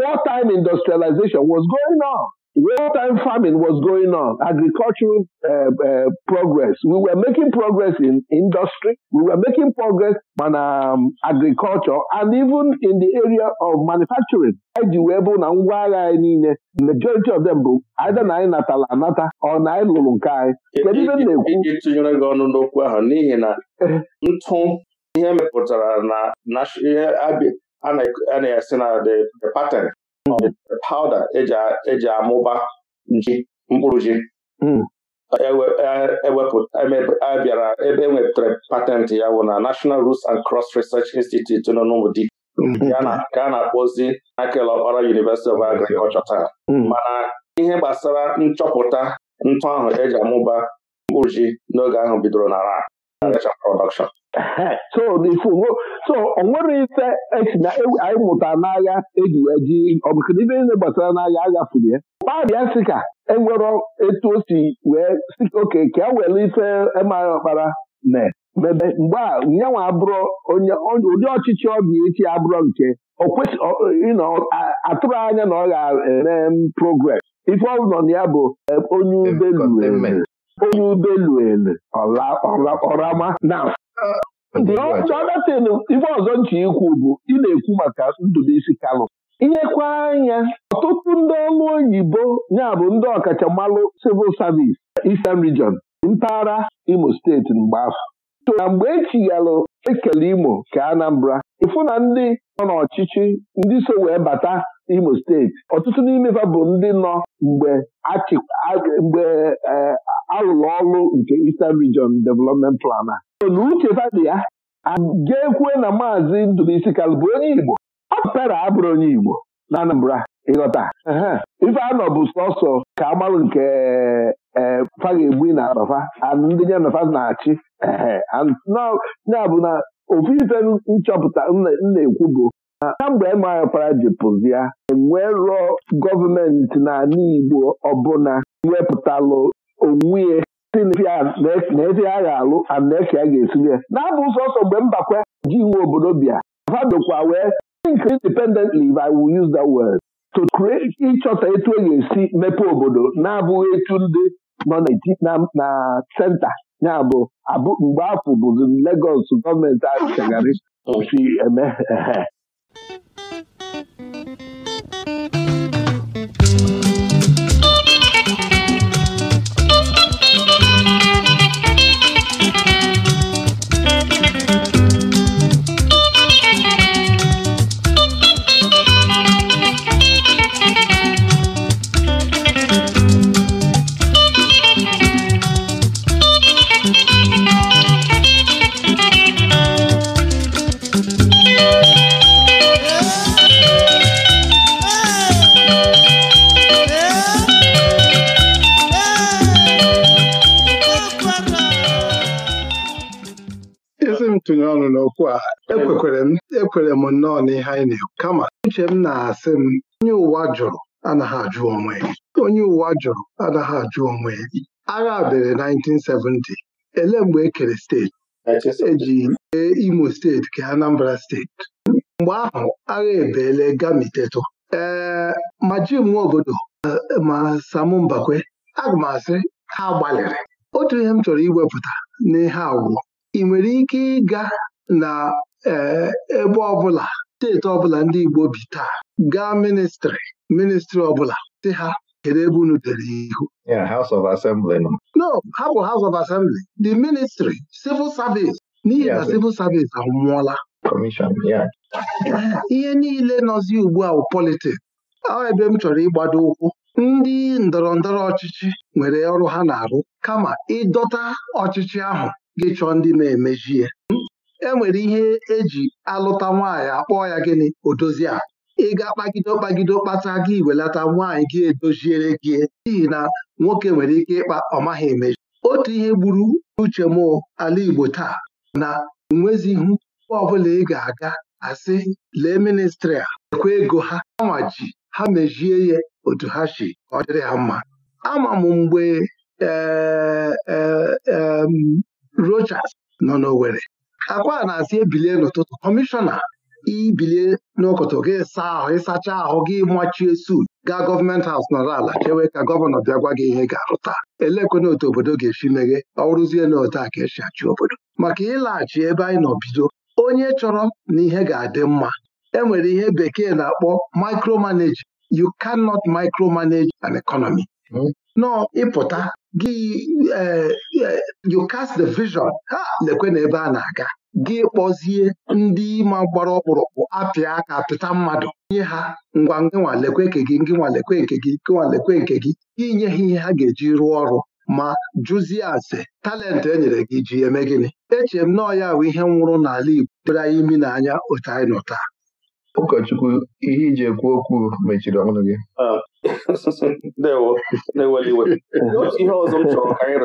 war time industrialization was going on. real-time farming was going on, agricultural uh, uh, progress. We were making progress in industry. We were making progress on um, agriculture and even in the area of manufacturing. eji wee bụ na ngwa agha anyị niile majority of them bụ either na anyị natala anata or na anyị lụrụ nke anyị e, kedu ibe e, e, na-ekwu iji tụnyere gị ọnụ n'okwu ahụ n'ihi na eh. ntụ ihe mepụtara na ihe a na-esi na the pattern pawuda e eji amụba nji mkpụrụ ji abịara hmm. e e, ebe enwetara patentị ya bụ na National Roots and Cross Research Institute nọ n'Ụmụdị hmm. ka a na-akpọzi Michael Okpara University of Agriculture taa hmm. mana ihe gbasara nchọpụta ntụ ahụ eji amụba mkpụrụ ji n'oge ahụ bidoro na so n'ifugo so o ife esi na anyị mụta n'agha eji wee ji ọbụkụ ife niile gbasara n'agha aghafurụ ya kpabịa sị ka enwere etu o si wee si oke ka e ife emaghị ọkpara na mebe mgbe a nyanwa abụrụ ụdị ọchịchị ọbịa echi abụrụ nke atụrụ anya na ọ ga-eme progress ife ọ nọ na ya bụ e, onye ụgbọelu onye ubeluelu ọrama na ọdatin ibe ọzọ nche ikwu bụ ị na-ekwu maka Ndubisi Kalụ inyekwa anya ọtụtụ ndị ọlụ oyibo ya bụ ndị mmalụ civil service Eastern Region mpaghara Imo steeti mgbe afọ na mgbe echighalụ ekele Imo ka Anambra ịfụ na ndị nọ n'ọchịchị ndị so wee bata Imo steeti ọtụtụ n'ime ha bụ ndị nọ mgbe mgbe e, alụlụ ọlụ nke Eastern Region Development Plan a na uche dị ya ga-ekwe na maazị Ndụbụisi isi bụ onye Igbo ọ abụrụ onye Igbo na Anambra ịghọta ife anọ bụ sọsọ ka agbalụ nke e, fa ga-egbu na abafa ndị nafa na-achị ya bụ nchọpụta na-ekwu bụ kamgbe emepara ji pụzia enwee rụọ gọọmenti n'ala Igbo ọbụla wepụtalụ onwe ya na-esi a ga-alụ anaeke a ga-esiri ya na-abụ sọsọ mgbe mbakwe ji iwu obodo bịa fadokwa wee think independently if I will use that word to create ịchọta etu e ga-esi mepee obodo na-abụghị etu ndị nọ na senta ya bụ abụ mgbe afọ bụzi Legọs gọọmenti achagharị osi eme n'ihe anyị na-ekwu kama uche m na-asị m onye ụwa jụrụ anaghị ajụ onwe onye ụwa jụrụ anaghị ajụ onwe agha bere 1970 elee mgbe e kere steeti eji ee Imo steeti kee Anambra steeti mgbe ahụ agha ebeele gamiteto ee ma jim nwaobodo eh, ma Sam Mbakwe aga m asị ha gbalịrị otu ihe m chọrọ iwepụta n'ihe agwụ ị nwere ike ịga na eh, ebe ọbụla steeti ọbụla ndị Igbo bi taa gaa ministrị ministrị ọbụla si ha kedu ebe unu dere ihu House of Assembly no ha bụ House of Assembly the ministry civil service n'ihi na civil service anwụọla ihe niile nọzi ugbu a politiks ọ ebe m chọrọ ịgbado ụkwụ ndị ndọrọ ndọrọ ọchịchị nwere ọrụ ha na-arụ kama ịdọta ọchịchị ahụ gị chọọ ndị na-emeji ya enwere ihe eji alụta nwaanyị akpọ ya gịnị odozi a ịga kpagide kpagide kpata gị iwelata nwaanyị gị edoziere gị n'ihi na nwoke nwere ike ịkpa maghị emeji otu ihe gburu uche m ala Igbo taa na ihu mgbe ọbụla ị ga-aga asị lee ministri a ekwe ego ha Ama ji ha mejie ya otu ha si ọ dịrị ha mma ama m mgbe eh, eh, Rochas nọ n'Owerri akwa na-asị ebilie n'ụtụtụ kọmishọna ibilie n'ụkọtụ gị saa ahụ ịsacha ahụ gị machie sut gaa gọọmenti haus nọrọ ala chewe ka gọvanọ bịa gwa gị ihe ga-arụta elekwena otu obodo ga-esi meghe ọrụzie na otu a ka esi achị obodo maka ịlaghachi ebe anyị nọ bido onye chọrọ na ihe ga-adị mma enwere ihe bekee na-akpọ micromanage you cannot micromanage an economy hmm. nọ ịpụta gị e, e, you cast the vision ha lekwe na ebe a na-aga gị kpọzie ndị ma gbara ọkpụrụkpụ apịa aka pịta mmadụ nye ha ngwa ngịnwa nke gị ngịnwa nke gị ngịnwa nke gị inye ha ihe ha ga-eji rụọ ọrụ ma jụzie ase talent e nyere gị ji eme gịnị echere m na ya bụ ihe nwụrụ n'ala Igbo dere anyị imi n'anya otu anyị nọ taa ụkọchukwu ihe iji ekwu okwu mechiri ọnụ gị ah. na iwe otu ihe ọzọ m chọrọ ka anyị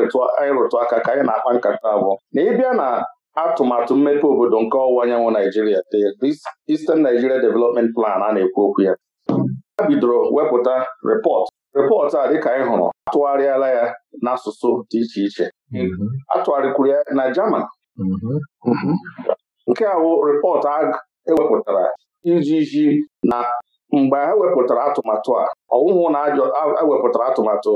rụtụ aka ka anyị na-akpa nkata abụọ na ịbịa na atụmatụ mmepe obodo nke ọwụwa anyanwụ Naijiria the Eastern Nigeria Development Plan a na-ekwu okwu ya a bidoro wepụta repọt repọt a dịka anyị hụrụ atụgharịala ya n'asụsụ dị iche iche mm-hmm. atụgharịkwuru ya na German mm-hmm. nke a bụ repọt ewepụtara ijiji na mgbe ha wepụtara atụmatụ a ọwụhụ na ewepụtara atụmatụ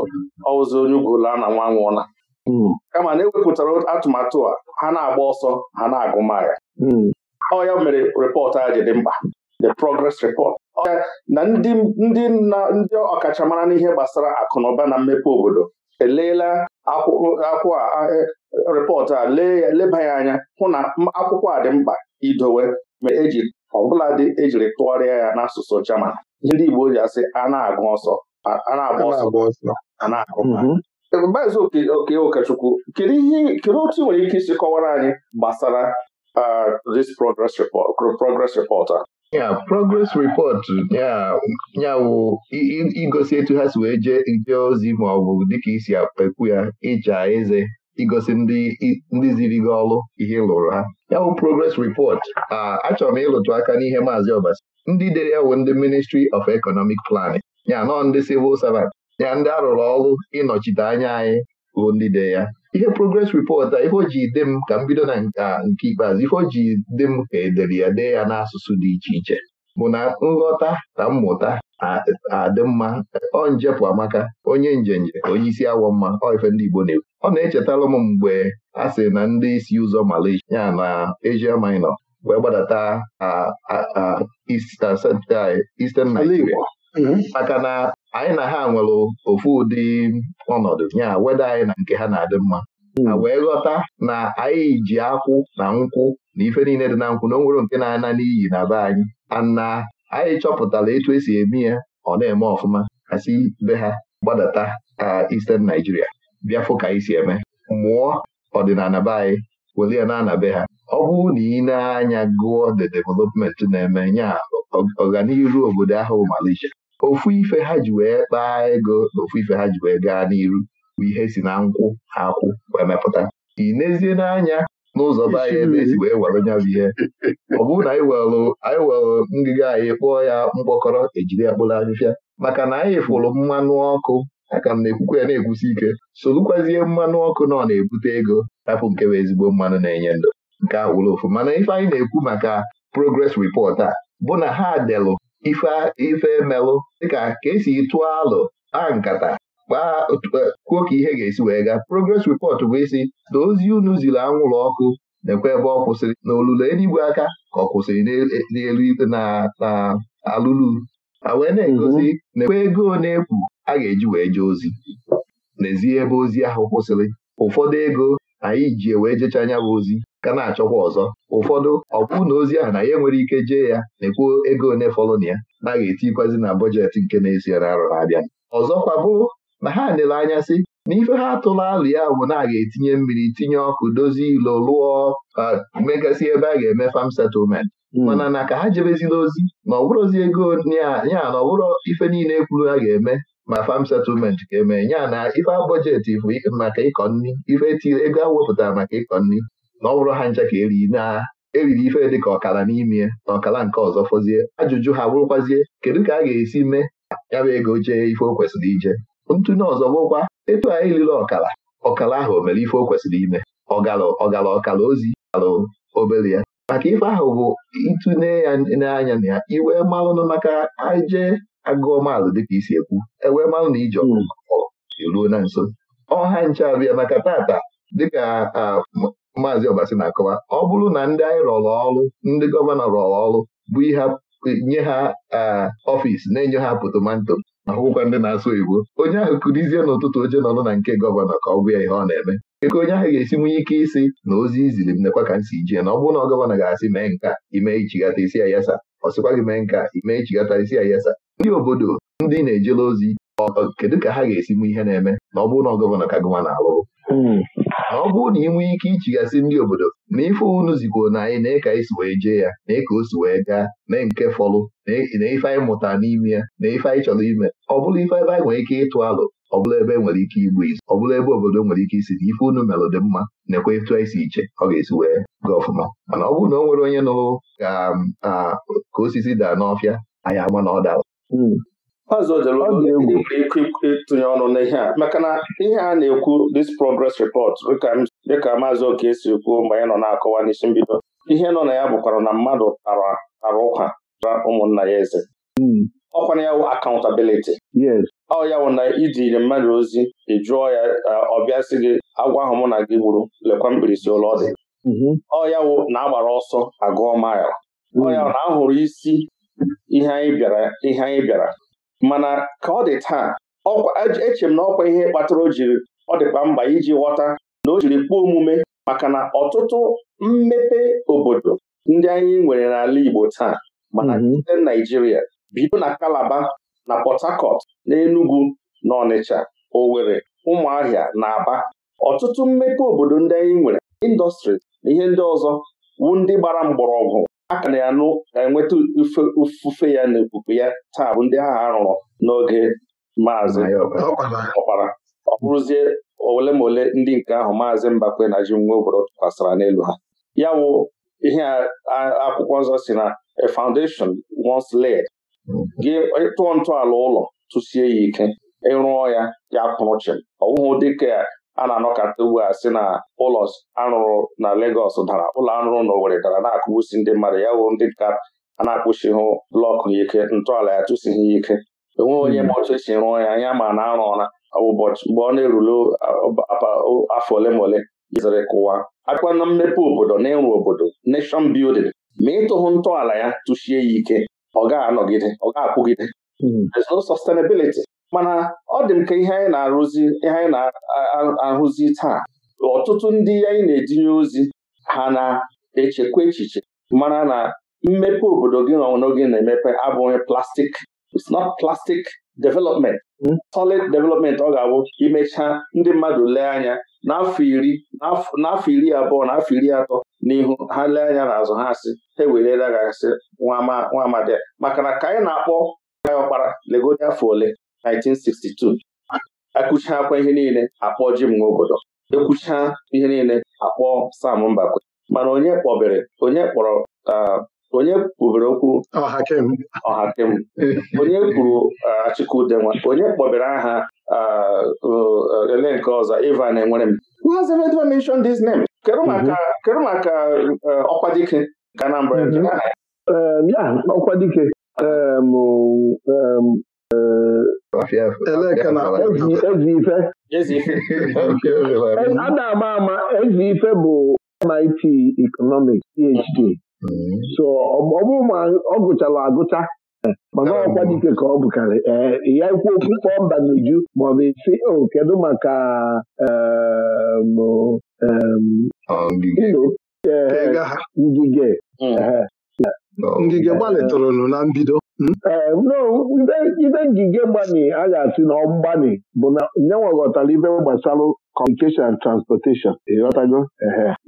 ọwụzi onye ugola na nwa nwụọla hmm. kama na ewepụtara atụmatụ a ha na-agba ọsọ ha na-agụ maya hmm. ọ ya mere rịpọtụ a ji dị mkpa the progress report na ndị ndị ndị ọkachamara n'ihe gbasara akụnụba na mmepe obodo eleela akwụkwọ rịpọtụ a leba ya anya hụ na akwụkwọ a dị mkpa idowe ma eji ọbụladị ejiri tụgharịa ya n'asụsụ German ndị Igbo ji asị a na-agụ ọsọ agba ọsọ mm-hmm. Oke Okechukwu kedu otu nwere ike isi kọwara anyị gbasara this progress report progress report a ya progress report ya wụ igosi etu ha si wee jee ozi ma ọ bụ dịka isi akpekwu ya ịja eze igosi ndị ziri gị ọlụ ihe lụrụ ha ya bụ progress report ah, achọrọ m ịlụtụ aka n'ihe maazị Ọbasi ndị dere ya bụ ndị Ministry of Economic Planning ya nọ ndị civil servant ya ndị arụrụ ọrụ ịnọchite anya anyị ruo ndị de ya ihe progress report a ife ji dị m ka m bido na nke ah, ikpeazụ o ji dị m ka edere ya dee ya n'asụsụ dị iche iche bụ na nghọta na mmụta adị mma ọ njepụ amaka onye njenje onye isi awọ mma ọ ife ndị Igbo na-ekwu ọ na-echetara m mgbe a sị na ndị isi ụzọ Malaysia ya na Asia Minor wee gbadata Eastern Nigeria mm-hmm. maka na anyị na ha nwere ofu ụdị ọnọdụ ya weda anyị na nke ha na-adị mma na hmm. wee ghọta na anyị ji akwụ na nkwụ na ife niile dị na nkwụ na onwere nke na-ana n'iyi na be anyị ana anyị chọpụtara etu esi eme ya ọ na-eme ọfụma k'asị be ha gbadata ka Eastern Nigeria bịa fụ ka anyị si eme mụọ ọdịnala be anyị were ya na anabe ha ọ bụrụ na ị na-anya gụọ the development na-eme nya ọganihu obodo ahụ Malaysia ofu ife ha ji wee kpaa ego na ofu ife ha ji wee gaa n'iru bụ ihe si na nkwụ ha akwụ wee mepụta ị n'ezie n'anya n'ụzọ be anyị ebe esi wee were nya bụ ihe ọ bụrụ na anyị welụ anyị welụ ngịga anyị kpụọ ya mkpọkọrọ ejiri ya kpụrụ afịfịa maka na anyị fụrụ mmanụ ọkụ aka m na-ekwukwa ya na-ekwusi ike solukwazie mmanụ ọkụ na ọ na-ebute ego hapụ nke bụ ezigbo mmanụ na-enye ndụ nke awụrụ ofu mana ife anyị na-ekwu maka progress report a bụ na ha delụ ife emelụ dịka ka esi tụọ alụ a nkata kpaa kwuo ka ihe ga-esi wee gaa progress report bụ isi na ozi unu ziri anwụrụ ọkụ na ebe ọ kwụsịrị na olulu eluigwe aka ka ọ kwụsịrị n'elu na alụlu a wee na-egosi mhm. na ego na-ekwu a ga-eji wee jee ozi n'ezie ebe ozi ahụ kwụsịrị ụfọdụ ego anyị ji e wee jecha anya bụ ozi ka na-achọkwa ọzọ ụfọdụ ọ bụrụ na ozi ahụ na ya nwere ike jee ya na-ekwu ego one fọlụ na ya na eti etikwazi na bọjetị nke na-esi na arọ na-abịa ọzọkwa bụrụ na ha nere anya sị na ife ha atụla alụ ya bụ na a ga-etinye mmiri tinye ọkụ dozie ilo lụọ megasị ebe a ga-eme fam settlement hmm. mana na ka ha jebezila ozi na ọbụrụzi ego ya na ọbụrụ ife niile kwuru ha ga-eme ma fam settlement ga-eme ya na ife bọjeti bụ maka ịkọ nri ife tiri ego a wepụtara maka ịkọ nri na ọ bụrụ ha ncha ka eri na eriri ife dị ka ọkara n'ime na ọkara nke ọzọ fọzie ajụjụ ha bụrụkwazie kedu ka a ga-esi mee ya bụ ego jee ife o kwesịrị ije ntụnye ọzọ bụkwa etu anyị liri ọkala ọkala ahụ o mere ife o kwesịrị ime ọgala ọgala ọkala ozi ala obere ya maka ife ahụ bụ ịtụnye ya n'anya na ya iwe malụnụ maka aje agụọ maalụ dịka isi ekwu ewee malụ na ije ọkụkọ hmm. eruo na nso ọha nche abịa maka tata dịka maazị ọbasi na-akọwa ọ bụrụ na ndị anyị rọrọ ọrụ ndị gọvanọ rọrọ ọrụ bụ ihe nye ha ọfiisi na-enye ha potomanto akwụkwọ ndị na-asụ oyibo onye ahụ kụrizie n'ụtụtụ oche nọnụ na nke gọvanọ ka ọ bụ ya ihe ọ na-eme eke onye ahụ ga-esi nwunye ike isi na ozi iziri m nekwa ka m si jee na ọ bụrụ na gọvanọ ga-asị mee nka ime ichigata isi ayasa ọ sịkwa gị mee nka ime ichigata isi ayasa ndị obodo ndị na-ejela ozi kedu ka ha ga-esi nwe ihe na-eme na ọ bụrụ na gọvanọ ka gọvanọ na-alụrụ hmm. ọ bụrụ na ị nwee ike ichigasị ndị obodo na ife unu zigoro na anyị na ị ka anyị wee jee ya na eke o si wee gaa na nke fọlụ na ife anyị mụtara n'ime ya na ife anyị chọrọ ime ọ bụrụ ife ebe anyị nwere ike ịtụ alụ ọbụla ebe e nwere ike igbu izu Ọbụla ebe obodo nwere ike isi na ife unu melụ dị mma nekwa ịtụ anyị si iche ọ ga-esi wee gaa ọfụma mana ọ bụrụ na o nwere onye nụrụ ka um, ah, ka osisi daa n'ọfịa anyị ama na ọ dara hmm. ọzọ jere ịtụnye ọnụ n'ihe a maka na ihe a na-ekwu this progress report dịka maazị oke si kwuo mgbe anyị nọ na-akọwa n'isi mbido ihe nọ na ya bụkwara na mmadụ tara tara ụka ra ụmụnna ya eze hmm. ọkwana ya wụ accountability ọ ya wụ na idiri mmadụ ozi ị jụọ ya ọbịa si gị agwa ahụ mụ na gị gburu lekwa mkpirisi ụlọ ọ dị mm-hmm. ọ ya wụ na agbara ọsọ agụọ mile ọ ya hmm. na a hụrụ isi ihe anyị bịara ihe anyị bịara mana ka ọ dị taa eche e m na ọkwa ihe kpatara o jiri ọ dịkwa mba iji ghọta na o jiri kpọọ omume maka na ọtụtụ mmepe obodo ndị anyị nwere n'ala Igbo taa mana ndị mm-hmm. Naijiria bido na Kalaba na Port Harcourt na Enugu na Ọnịcha Owerri Ụmụahịa na Aba ọtụtụ mmepe obodo ndị anyị nwere indọstrị na ihe ndị ọzọ wu ndị gbara mgbọrọgwụ aka na ya na-enweta ofufe ya na ebubo ya taa bụ ndị ahụ arụrụ n'oge maazị ọkpara ọ bụrụzie ole ma ole ndị nke ahụ maazị Mbakwe na ji nwa obodo tụkwasara n'elu ha ya wụ ihe akwụkwọ nzọ si na a foundation once laid gị tụọ ntọala ụlọ tụsie ya ike ịrụọ ya ya kpụrụ chịm ọ bụghị dịka a na-anọkata ugbu a si na ụlọ arụrụ na Legọs dara ụlọ arụrụ na Owerri dara na-akụgbusi ndị mmadụ ya wụ ndị ka a na akpụchighụ blọkụ ya ike ntọala ya tụsighi ya ike enweghị onye ma hmm. otu esi rụọ ya anya ma na arụ ụra ụbọchị mgbe ọ na-erule afọ ole ma ole jezere kụwa akwa na mmepe obodo na ịrụ obodo nation building ma ịtụhụ ntọala ya tụchie ya ike ọ ga-anọgide ọ ga-akwụgide hmm. there's no sustainability mana ọ dị m ka ihe anyị na-arụzi ihe anyị na-ahụzi taa ọtụtụ ndị anyị na-etinye ozi ha na-echekwa echiche mara na mmepe obodo gị na ọnwụnọ gị na-emepe abụghị plastik it's not plastic development hmm? solid development ọ ga-abụ imechaa ndị mmadụ lee anya n'afọ iri n'afọ iri abụọ na afọ iri atọ n'ihu ha lee anya n'azụ ha asị ha ewerela gasị nwa amadi maka na ka anyị na-akpọ ọkpara legodi afọ ole 1962 akụchakwa ihe niile akpọ ji m nwa obodo ekwucha ihe niile akpọ Sam Mbakwe mana onye kpọbere onye kpọrọ onye kwubere okwu ọhakem onye kwuru Achịkụdenwa onye kpọbere aha ele nke ọzọ Ivan Enwerem who has ever mentioned this name kedu mhm. maka ọkwa dike ka Anambra mhm. um, ọkwa dike um, um, Eleka na a na-ama ama ife bụ MIT Economics PhD mm-hmm. so ọ bụrụ ọ gụchara agụcha eh, mana ọkwa dike ka ọ bụkarị ee eh, ya ikwu okwu mba n'uju maọbụ isi o kedu maka eh, ngige Ngige eh, gbalị na mbido hmm? eh, ibe ngige mgbani a ga-asị na ọmgbani bụ na nye nweghọtara ibe gbasara communication transportation ịghọtago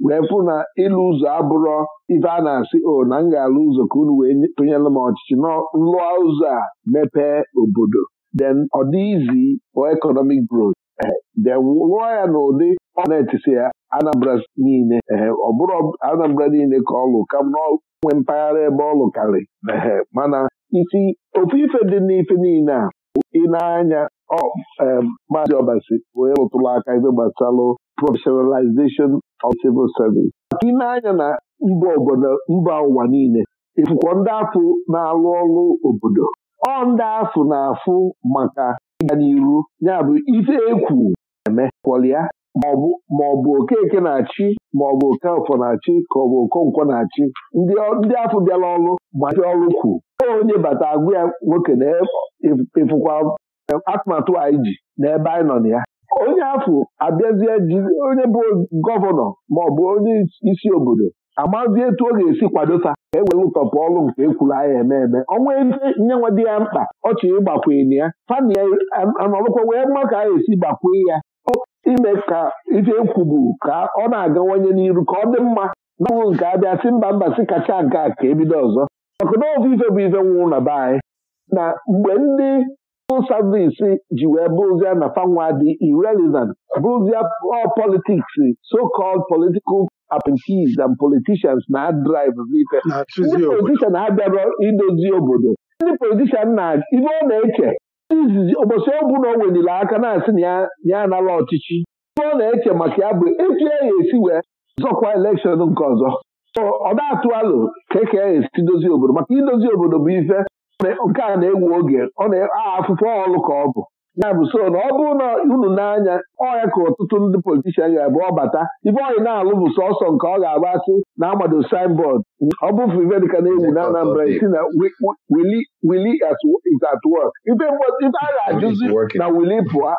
wee fụ na ịlụ ụzọ abụrọ ibe a na-asị o oh, na m ga-alụ ụzọ ka unu wee tụnyere m ọchịchị nlụọ ụzọ a mepee obodo then ọ dị izi for economic growth then lụọ ya n'ụdị ọ na-etisi ya Anambra niile ọ bụrụ Anambra niile ka ọ lụ kam nwe mpaghara ebe ọ lụkarị mana isi ofu ife dị n'ife niile a ị na-anya maazị Obasi onye rụtụrụ aka ife gbasalụ professionalization of civil service ị na-anya na mba obodo mba ụwa niile ịfụkwọ ndị afụ na-alụ ọrụ obodo ọ ndị afụ na-afụ maka ịga n'iru ya bụ ife ekwu eme kwọlịa maọbụ ọ bụ okeke na-achị maọbụ ọ bụ na-achị ka ọ bụ okonkwo na-achị ndị afọ bịara ọrụ ma machi ọrụ kwu onye bata agwụ ya nwoke na ịfụkwa atụmatụ anyị ji n'ebe anyị nọ na ya onye afọ abịazie onye bụ gọvanọ ma onye isi obodo amazi etu ọ ga-esi kwado ta ka e were ụtọpụ ọlụ nke ekwuru anya eme eme ọnwa ebe nyenwe dị ya mkpa chọrọ ịgbakwene ya fani ya anọrụkwa wee mma ka a esi gbakwee ya ime ka ife ekwubu ka ọ na-agawanye n'iru ka ọ dị mma n'ọnwụ nke abịa si mba mba si kacha nke a ka ebido ọzọ maka na ofu ife bụ ife nwụrụ na be anyị na mgbe ndị savisi ji wee bụrụzie na fanwa dị irrelevant bụrụzie all so-called political appointees and politicians na drive ife ndị politician abịara idozi obodo ndị politician na ibe ọ na-eche izizi ụbọchị ọbụla o weliri aka na-asị na ya anara ọchịchị ibe ọ na-eche maka ya bụ etu e ya esi wee zọkwa elekshọn nke ọzọ ọ na atụ alụ ka eke ya esi dozie obodo maka idozi obodo bụ ife nke a na-ewu oge ọ na-afụfụ aha ọlụ ka ọ bụ ya bụ so na ọ bụrụ na unu n'anya ya ka ọtụtụ ndị politishan ga-abụ ọbata ibe ọyị na-alụ bụ sọsọ nke ọ ga-agba asị na amado signboard ọ bụ frivedika na-ewu na Anambra si na wili is at work ibe a ga-ajụzi na wili pụa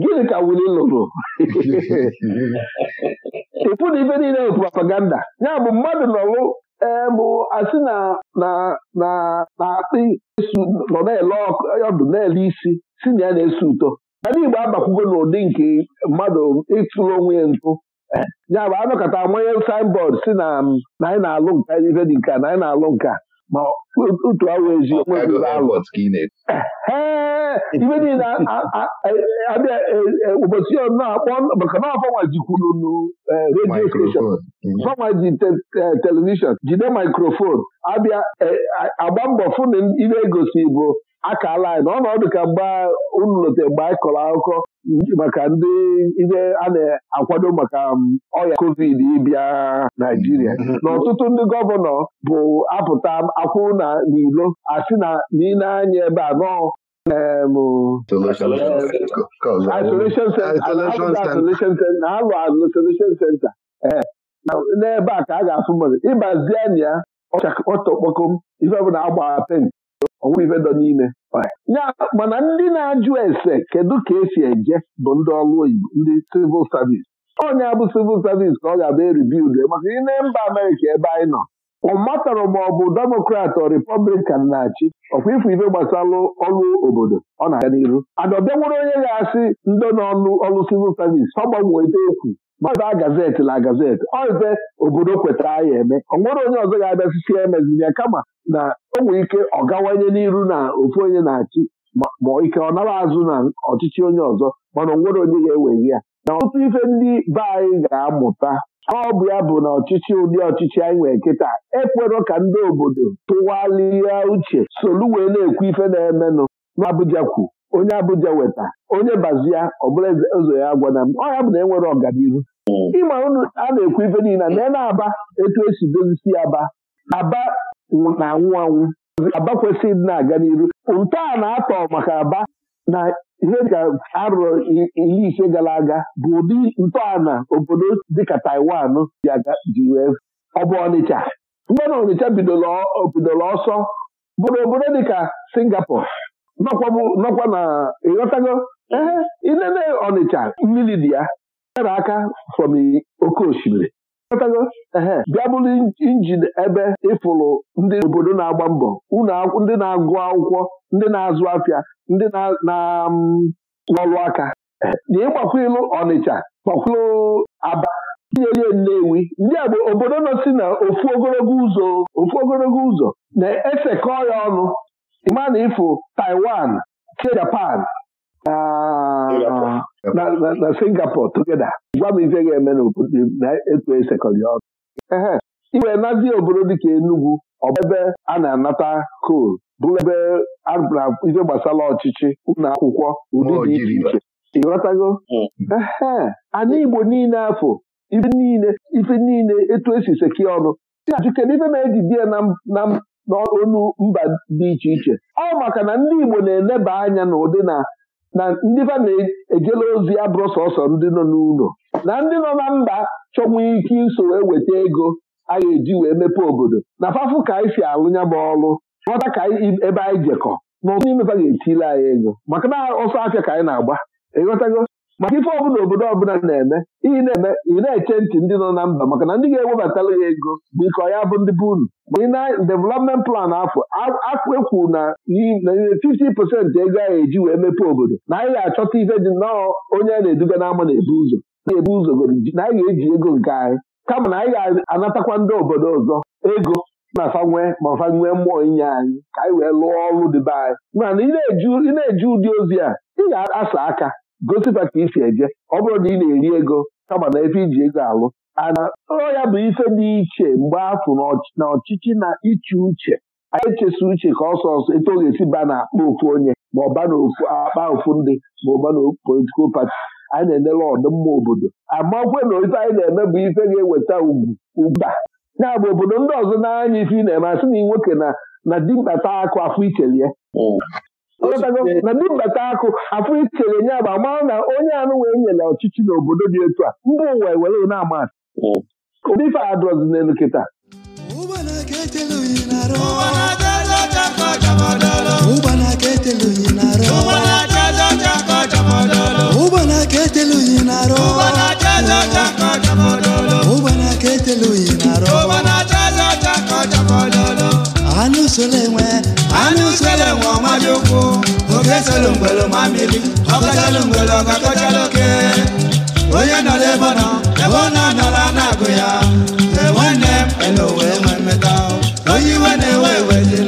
gịnị ka wili lụrụ ịpụ na ibe niile bụ propaganda ya bụ mmadụ nọrụ ee bụ asị na na-akpị nọ na-ele e, ọdụ na-ele isi si na ya na-esi ụtọ ndị Igbo abakwugo n'ụdị nke mmadụ ịtụrụ onwe ya ntụ e, ya bụ anọkọta amanye signboard si na anyị na-alụ nka ife dị nka na anyị na-alụ nka ma otu ahụ eziokwu ibe niile abịa ụbọchị na-akpọ maka na afọnwa jikwuru nu redio steshọn fanwa ji e, telivishọn jide mikrofon abịa e, agba mbọ fụna ibe egosi bụ akala anyị na ọ nọdụ ka mgbe unu lote mgbe anyị kọrọ akụkọ maka ndị ihe a na-akwado maka um, ọya covid ịbịa Naijiria mm-hmm. na ọtụtụ ndị gọvanọ bụ apụta um, akwụ na n'ilo asị na n'ile anya ebe a nọ um, isolation center na alụ isolation center eh, n'ebe a ka a ga-afụ mmadụ ịbazie anya ya ọchakọtọkpọkom ife bụ na agba pen ọnwụ ife dọ Ya mana ndị na-ajụ ese kedu ka esi eje bụ ndị ọrụ oyibo ndị civil service onye abụ civil service ka ọ ga-abụ eribild e maka ine mba Amerịka ebe anyị nọ ọ ma ọ bụ demokrat ọ republikan na-achị ọkwa ife ife gbasara ọrụ obodo ọ na-aga n'iru adọbịanwere onye ga-asị ndị n'ọnụ ọrụ civil service ọ gbanwee gbanweta okwu maba gazeti na gazeti oize obodo kwetara anyị eme ọ nwere onye ọzọ ga-abịasisi ya ya kama na o ike ọ gawanye n'iru na ofu onye na-achị ma ike ọ nara azụ na ọchịchị onye ọzọ mana onwere nwere onye ga eweghị ya na ọtụtụ ife ndị be anyị ga-amụta ọ bụ ya bụ na ọchịchị ụdị ọchịchị anyị nwere nkịta ekwerọ ka ndị obodo tụwalịa uche solu wee na-ekwu ife na-emenụ n'Abuja kwu onye abụja weta onye bazia ọ bụla ụzọ ya agwana m ọ ya bụ na enwere ọganihu hmm. ịma ụnụ a na-ekwu ibe niile na na-aba etu esi dozisi aba aba na anwụ anwụ aba kwesịrị na-aga n'iru ntọala na-atọ maka aba na ihe ka arụrụ Ili ise gara aga bụ ụdị ntọala obodo dịka Taiwan ji wee ọ bụ Ọnịcha mgbe na Ọnịcha bidoro ọsọ bụrụ obodo dịka Singapore nọkwa na ịghọtago ee inene Ọnịcha mmiri dị ya e nyere aka fọm oke osimiri ịghọtago ee bịa bụrụ injin ebe ịfụrụ ndị obodo na-agba mbọ ndị na-agụ akwụkwọ ndị na-azụ afịa ndị na-arụ aka na ịgbakwilụ Ọnịcha gbakwilụ Aba tinye Nnewi ndị agbo obodo nọ si na ofu ogologo ụzọ ofu ogologo ụzọ na-esekọ ya ọnụ ịma uh, na ịfụ Taiwan che Japan na Singapore togeda gwa m ife ga-eme na etu esekọrị ọrụ ee iwee nazi obodo dịka Enugu ọ bụ ebe a na-anata kol bụrụ ebe ife gbasara ọchịchị ụlọ akwụkwọ ụdị dị iche iche ịghọtago ee anyị Igbo niile afọ ife niile etu esi seki ọnụ si ajụ kedu ife na-eji di ya na n'olu mba dị iche iche ọ maka na ndị Igbo na-eleba anya n'ụdị na na ndị ba na-ejela ozi abụrụ sọsọ ndị nọ n'ụlọ na ndị nọ na mba chọnwe ike iso eweta ego a ga-eji wee mepee obodo na fafụ ka anyị si alụ ya bụ ọrụ ghọta ka ebe anyị jekọ n'ụtụ imepe ga-etile anyị ego maka na ọsọ afịa ka anyị na-agba ịghọtago maka ife ọbụla obodo ọbụla na-eme na-eme ị na-eche ntị ndị nọ na mba maka na ndị ga ewebatala ya ego bụ ike ọ ya bụ ndị bụ unu ma na development plan afọ akpekwu na 50% ego ahụ eji wee mepee obodo na anyị ga-achọta ife dị nnọọ onye a na-eduga n'ama na-ebu ụzọ na-ebu ụzọ na anyị ga-eji ego nke anyị kama na anyị ga-anatakwa ndị obodo ọzọ ego na fanwe ma fanwe mmụọ inye anyị ka anyị wee lụọ ọrụ dịbe anyị mana ị na-eju ụdị ozi a ị ga-asa aka gosipa ka isi eje ọ bụrụ na ị na-eri ego kama na ebe iji ego alụ ana ọ ya bụ ife dị iche mgbe afụ na ọchịchị na iche uche anyị echesa uche ka ọsọ ọsọ ete ọ ga-esi ba na akpa ofu onye ma ọ ba na akpa ofu ndị ma ọ ba na politikal pati anyị na-enere ọdịmma obodo amakwe na ife anyị na-eme bụ ife ga-eweta ugwu ugba ya bụ obodo ndị ọzọ na-anya ife ị na-eme asị na nwoke na dimkpata akụ afọ ikelie E na mbata akụ afọ itere nye agba mara na onye anụ wee nyere ọchịchị n'obodo dị otu a mba ụwa e were na ama ụdị hmm. ife adọzi n'elu kịta na-arụ solongolo ma mmiri ọkọchalongolo ọkakọchaloke onye nọ n'ebe nọ ebe ọ na-anọla na-agụ ya enwe nne m ele wee nwee mmeta onye iwe na-ewe ewe dị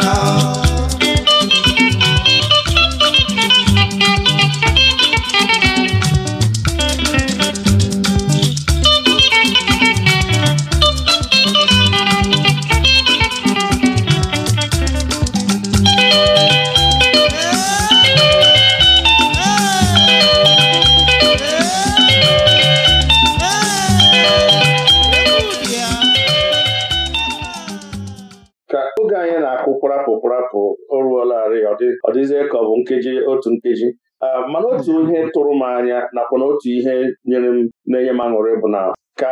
na otu ihe nyere m na-enye m aṅụrị bụ na ka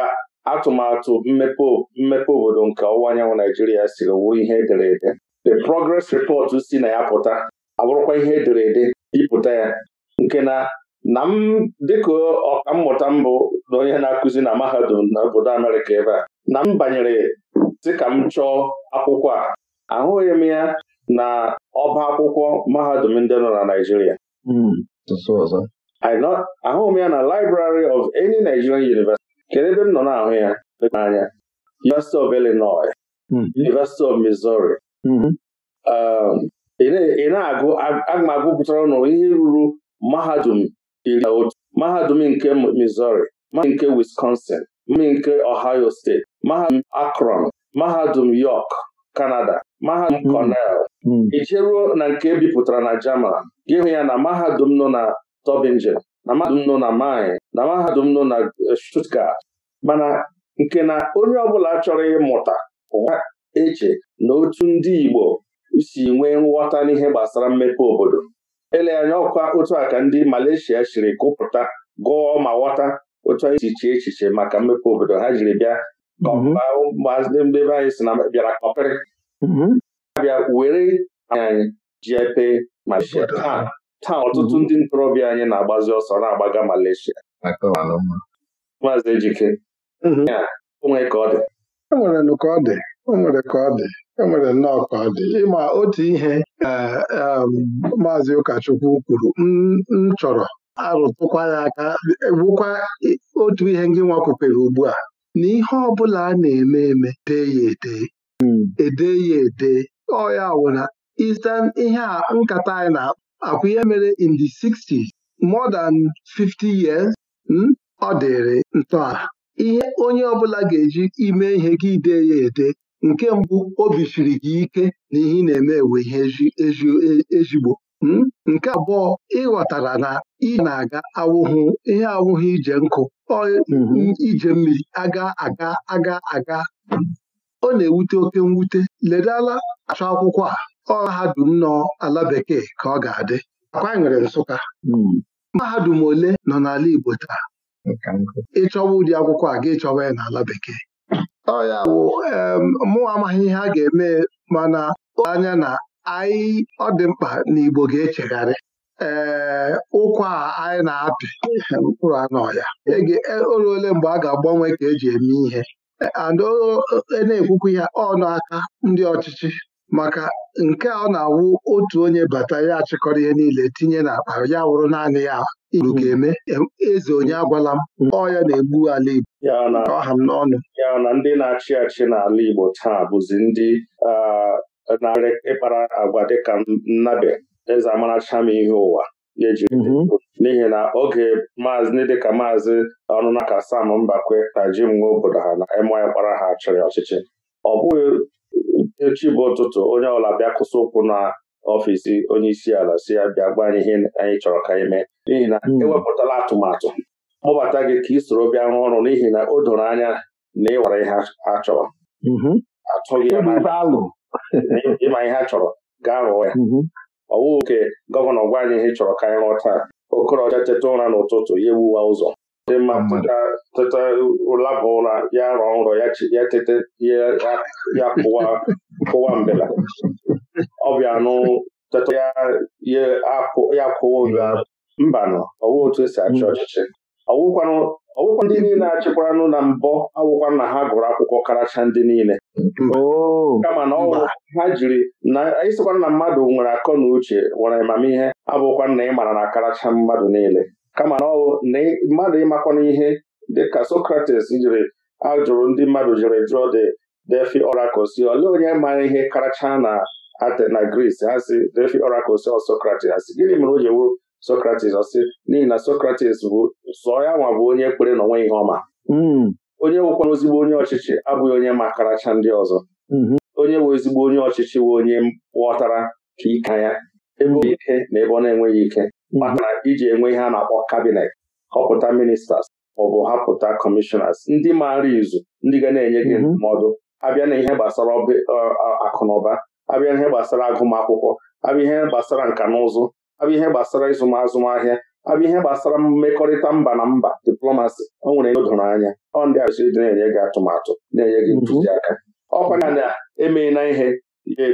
atụmatụ mmepe mmepe obodo nke ọwụwa anyanwụ Naijiria siri wuo ihe ede. the progress report si na ya pụta abụrụkwa ihe ede ịpụta ya nke na na m dịka ọkammụta mbụ na onye na-akụzi na mahadum na obodo Amerịka ebe a na m banyere ka m chọọ akwụkwọ a ahụghị m ya na ọba akwụkwọ mahadum ndị nọ na Naijiria hmm, ahụ m ya na Library of any Nigerian University kedu ebe m nọ na-ahụ ya anya? University of Illinois hmm. University of Missouri mm-hmm. um, ị na-agụ agụmagụ pụtara ọnụ ihe ruru mahadum iri na otu mahadum nke Missouri mahadum nke Wisconsin mahadum nke Ohio State mahadum Akron mahadum York Canada mahadum hmm. Cornell ijeruo hmm. na nke ebipụtara na German gị hụ ya na mahadum nọ na Tübingen na mahadum nọ na Mainz na mahadum nọ na Stuttgart mana nke na onye ọbụla chọrọ ịmụta ụwa eche na otu ndị Igbo si nwee nghọta n'ihe gbasara mmepe obodo ele anya ọkwa otu a ka ndị Malaysia siri gụpụta gụọ ma ghọta otu anyị si echiche maka mmepe obodo ha jiri bịa mhm. anyị si na bịara kọpịrị mhm. abịa were anyị ji epe Malaysia taa ọtụtụ mhm. ndị ntorobịa anyị na-agbazi ọsọ na-agbaga Malaysia maazị Ejike mhm. onwe ka ọ dị enwere ka ọ dị enwere ka ọ dị enwere nnọọ ka ọ dị ịma otu ihe e, e, maazị ụkọchukwu kwuru m chọrọ arụtụkwa ya aka gwụkwa otu ihe ngị nwa ugbu a na ihe ọ bụla a na-eme eme dee ya ede hmm. ede ya ede ọ ya wụna ihe a nkata anyị na-akpọ akwa ihe mere in the 60 more than 50 years hmm, ọ dịrị ntọala ihe onye ọbụla ga-eji ime ihe gị ide ya ede nke mbụ obi siri gị ike na ihe na-eme ewe ihe e, ezigbo hmm. nke abụọ ịghọtara na ị na-aga awụhụ ihe awụhụ ije nkụ hmm, ije mmiri aga aga aga aga ọ na-ewute oke mwute ledala achọ akwụkwọ a mahadum nọ ala bekee ka ọ ga-adị akwa nwere Nsụka hmm. mahadum ole nọ n'ala Igbo taa ịchọwa ụdị akwụkwọ a ga-ịchọwa ya n'ala bekee ọya bụ mụ amaghị ihe a ga-eme mana anya na anyị ọ dị mkpa na Igbo ga-echegharị ee ụkwa a anyị na-apị mkpụrụ anọ ya e e, oruole mgbe a ga-agbanwe ka eji eme ihe e, na ekwukwu ihe ọnụ aka ndị ọchịchị maka nke a ọ na-awụ otu onye bata ya achịkọrọ ihe niile tinye n'akpa ya wụrụ naanị ya igbo hmm. ga-eme eze onye agwala m hmm. ọ ya na-egbu ala Igbo ọha m n'ọnụ ya na ndị na-achị achị n'ala Igbo taa bụzi ndị na-arị ịkpara agwa dịka nnabe eze amaracham ihe ụwa hmm. n'ihi na oge maazị ndị dịka maazị ọnụnaka Sam Mbakwe na Jim Nwa obodo ha na emy kpara ha chịrị ọchịchị ọ bụghị echi bụ ụtụtụ onye ọla bịa kwụsị ụkwụ na ọfịs onye isi ala si ya bịa gwa anyị ihe anyị chọrọ ka anyị mee n'ihi na hmm. ewepụtala atụmatụ kpọbata gị ka ị soro bịa rụọ ọrụ n'ihi na o doro anya na ịwara ihe mm-hmm. a chọrọ atụghị ịma ihe a chọrọ gaa rụọ ya mm-hmm. ọwụ nke gọvanọ gwa anyị ihe chọrọ ka anyị rụọ taa okorocha teta ụra n'ụtụtụ ya ewuwa ụzọ ịma teta ụlabụ ụra ya rọọ nrọ ya tete ya kụwa mbela ọbịa anụ teta ya kụwa oyi mbanụ ọwụ otu esi achị ọchịchị ọwụkwa ndị niile achịkwaranụ na mbọ awụkwa na ha gụrụ akwụkwọ karacha ndị niile oh. kama na ọwụ ha jiri na ịsịkwana na mmadụ nwere akọ na uche nwere amamihe abụkwa na ị mara na karacha mmadụ niile kama na ọwụ na mmadụ ịmakwana ihe dịka Socrates jiri ajụrụ ndị mmadụ jiri jụọ de defi Orakosi olee onye mara ihe karacha na Atena Gris ha si defi Orakosi ọ Socrates ha si gịnị mere o ji wuru Socrates n'ihi na Socrates bụ sọ ya nwa bụ onye ekpere na onwe ihe ọma hmm. onye nwekwana ezigbo onye ọchịchị abụghị onye ma karacha ndị ọzọ hmm. onye nwe ezigbo onye ọchịchị bụ onye ghọtara ka ike ya ebe ọ na-enweghị ike maka iji enwe ihe a na-akpọ kabinet họpụta ministers maọbụ hapụta kọmishọnas ndị maara izu ndị ga na-enye gị mhm. ndụmọdụ abịa na ihe gbasara akụnụba abịa na ihe gbasara agụmakwụkwọ abịa ihe gbasara nka na ụzụ abịa ihe gbasara azụmahịa abịa ihe gbasara mmekọrịta mba na mba diplomasi o nwere ihe doro anya ọ ndị asịrị dị na-enye gị atụmatụ na-enye gị mhm. ntụziaka ọkwa na e na emeela ihe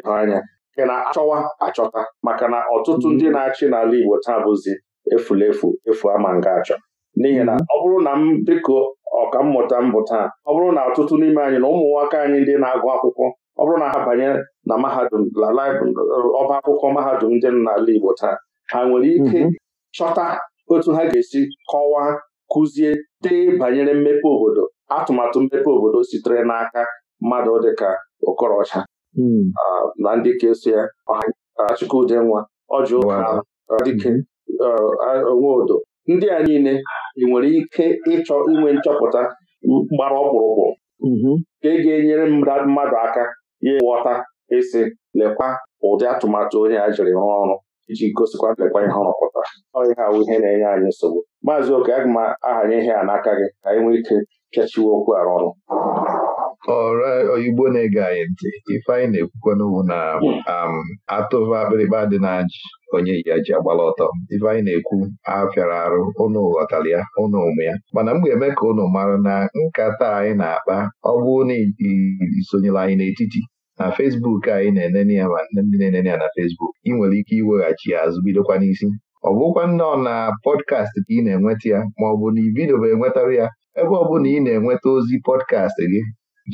ga anya ị na-achọwa achọta maka na ọtụtụ ndị mm-hmm. na-achị n'ala Igbo taa bụzi efulefu efu ama nga achọ n'ihi na mm-hmm. ọ bụrụ na m dịka mmụta mbụ taa ọ bụrụ na ọtụtụ n'ime anyị na ụmụ nwoke anyị ndị na-agụ akwụkwọ ọ bụrụ na ha banye na mahadum ọba akwụkwọ mahadum ndị n'ala Igbo taa ha nwere ike mm-hmm. chọta otu ha ga-esi kọwaa kụzie dee banyere mmepe obodo atụmatụ mmepe obodo sitere n'aka mmadụ dịka Okorocha Hmm. Ah, na ndị ka eso ya Chukwudenwa ọjụ ụka dike hmm. ah, Nwodo ndị a niile ị nwere ike ịchọ inwe nchọpụta gbara ọkpụrụkpụ mm-hmm. ka e ga-enyere mmadụ aka ya ghọta isi lekwa ụdị atụmatụ onye a jiri rụọ ọrụ iji gosikwa lekwa ihe ọ rụpụtara ọhịa awụ ihe na-enye anyị nsogbu maazị oke aga m ahanye ihe a n'aka gị ka anyị nwee ike kechiwe okwu arụ ọrụ ọra oyibo na-ege anyị ntị ifeanyị na-ekwukwana bụ na um, atụva akpịrịkpa dị na-ajị onye yi ya ji agbala ọtọ ifeanyị na-ekwu afịara arụ ụnụ ghọtara ya ụnụ ụmụ ya mana m ga-eme ka ụnụ mara na nkata anyị na-akpa ọ bụrụ na isonyere anyị n'etiti na fesbuk anyị na-enene ya ma ndị na-enene ya na fesbuk ị nwere ike iweghachi ya azụ bidokwa n'isi ọ bụkwa nnọọ na pọdkast ka ị na-enweta ya ma ọ bụ na ibido bụ enwetara ya ebe ọ na ị na-enweta ozi pọdkast gị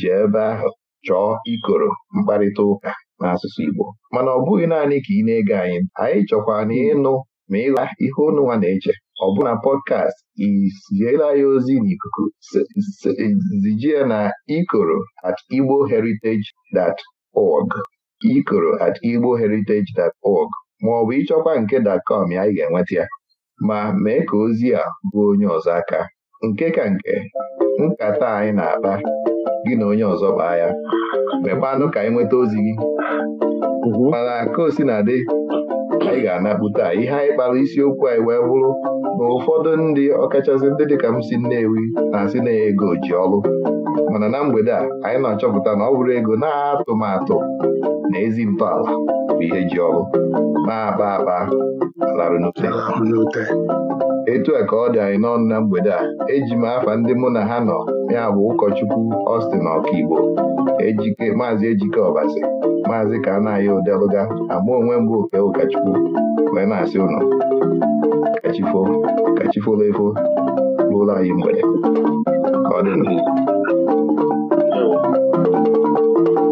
jee ebe ahụ chọọ ikoro mkparịta ụka n'asụsụ Igbo mana ọ bụghị naanị ka ị na-ege anyị anyị chọkwa na ịnụ ma ịla ihe onụnwa na-eche ọ bụ na pọdkast iziela ya ozi n'ikuku zijie na ikoro at igbo heritage dat org ikoro at igbo heritage dat org ma ọ bụ ịchọkwa nke datcom anyị ga-enweta ya ma mee ka ozi a bụ onye ọzọ aka nke ka nke nkata anyị na-akpa gị na onye ọzọ kpaa ya mekwanụ ka anyị e nweta ozi gị mana ka o si na dị anyị ga-anapụta ihe anyị kpara isiokwu anyị wee bụrụ na ụfọdụ ndị ọkachasị ndị dịka m si nnewi na-asị na ego ji ọrụ mana na mgbede a anyị na-achọpụta na ọ bụrụ ego na-atụmatụ na ezi ntọala bụ ihe ji ọrụ na-aba aba larụ n'ute etu a ka ọ dị anyị n'ọnụ na mgbede a eji m afa ndị mụ na ha nọ ya bụ ụkọchukwu Austin Ọkaigbo ejike maazị ejike ọbasi maazị ka anaghị odelụga ama onwe mbụ oke ụkọchukwu wee na-asị ụnụ kachifo kachifolo efo lụlọ anyị mgbede ka ọ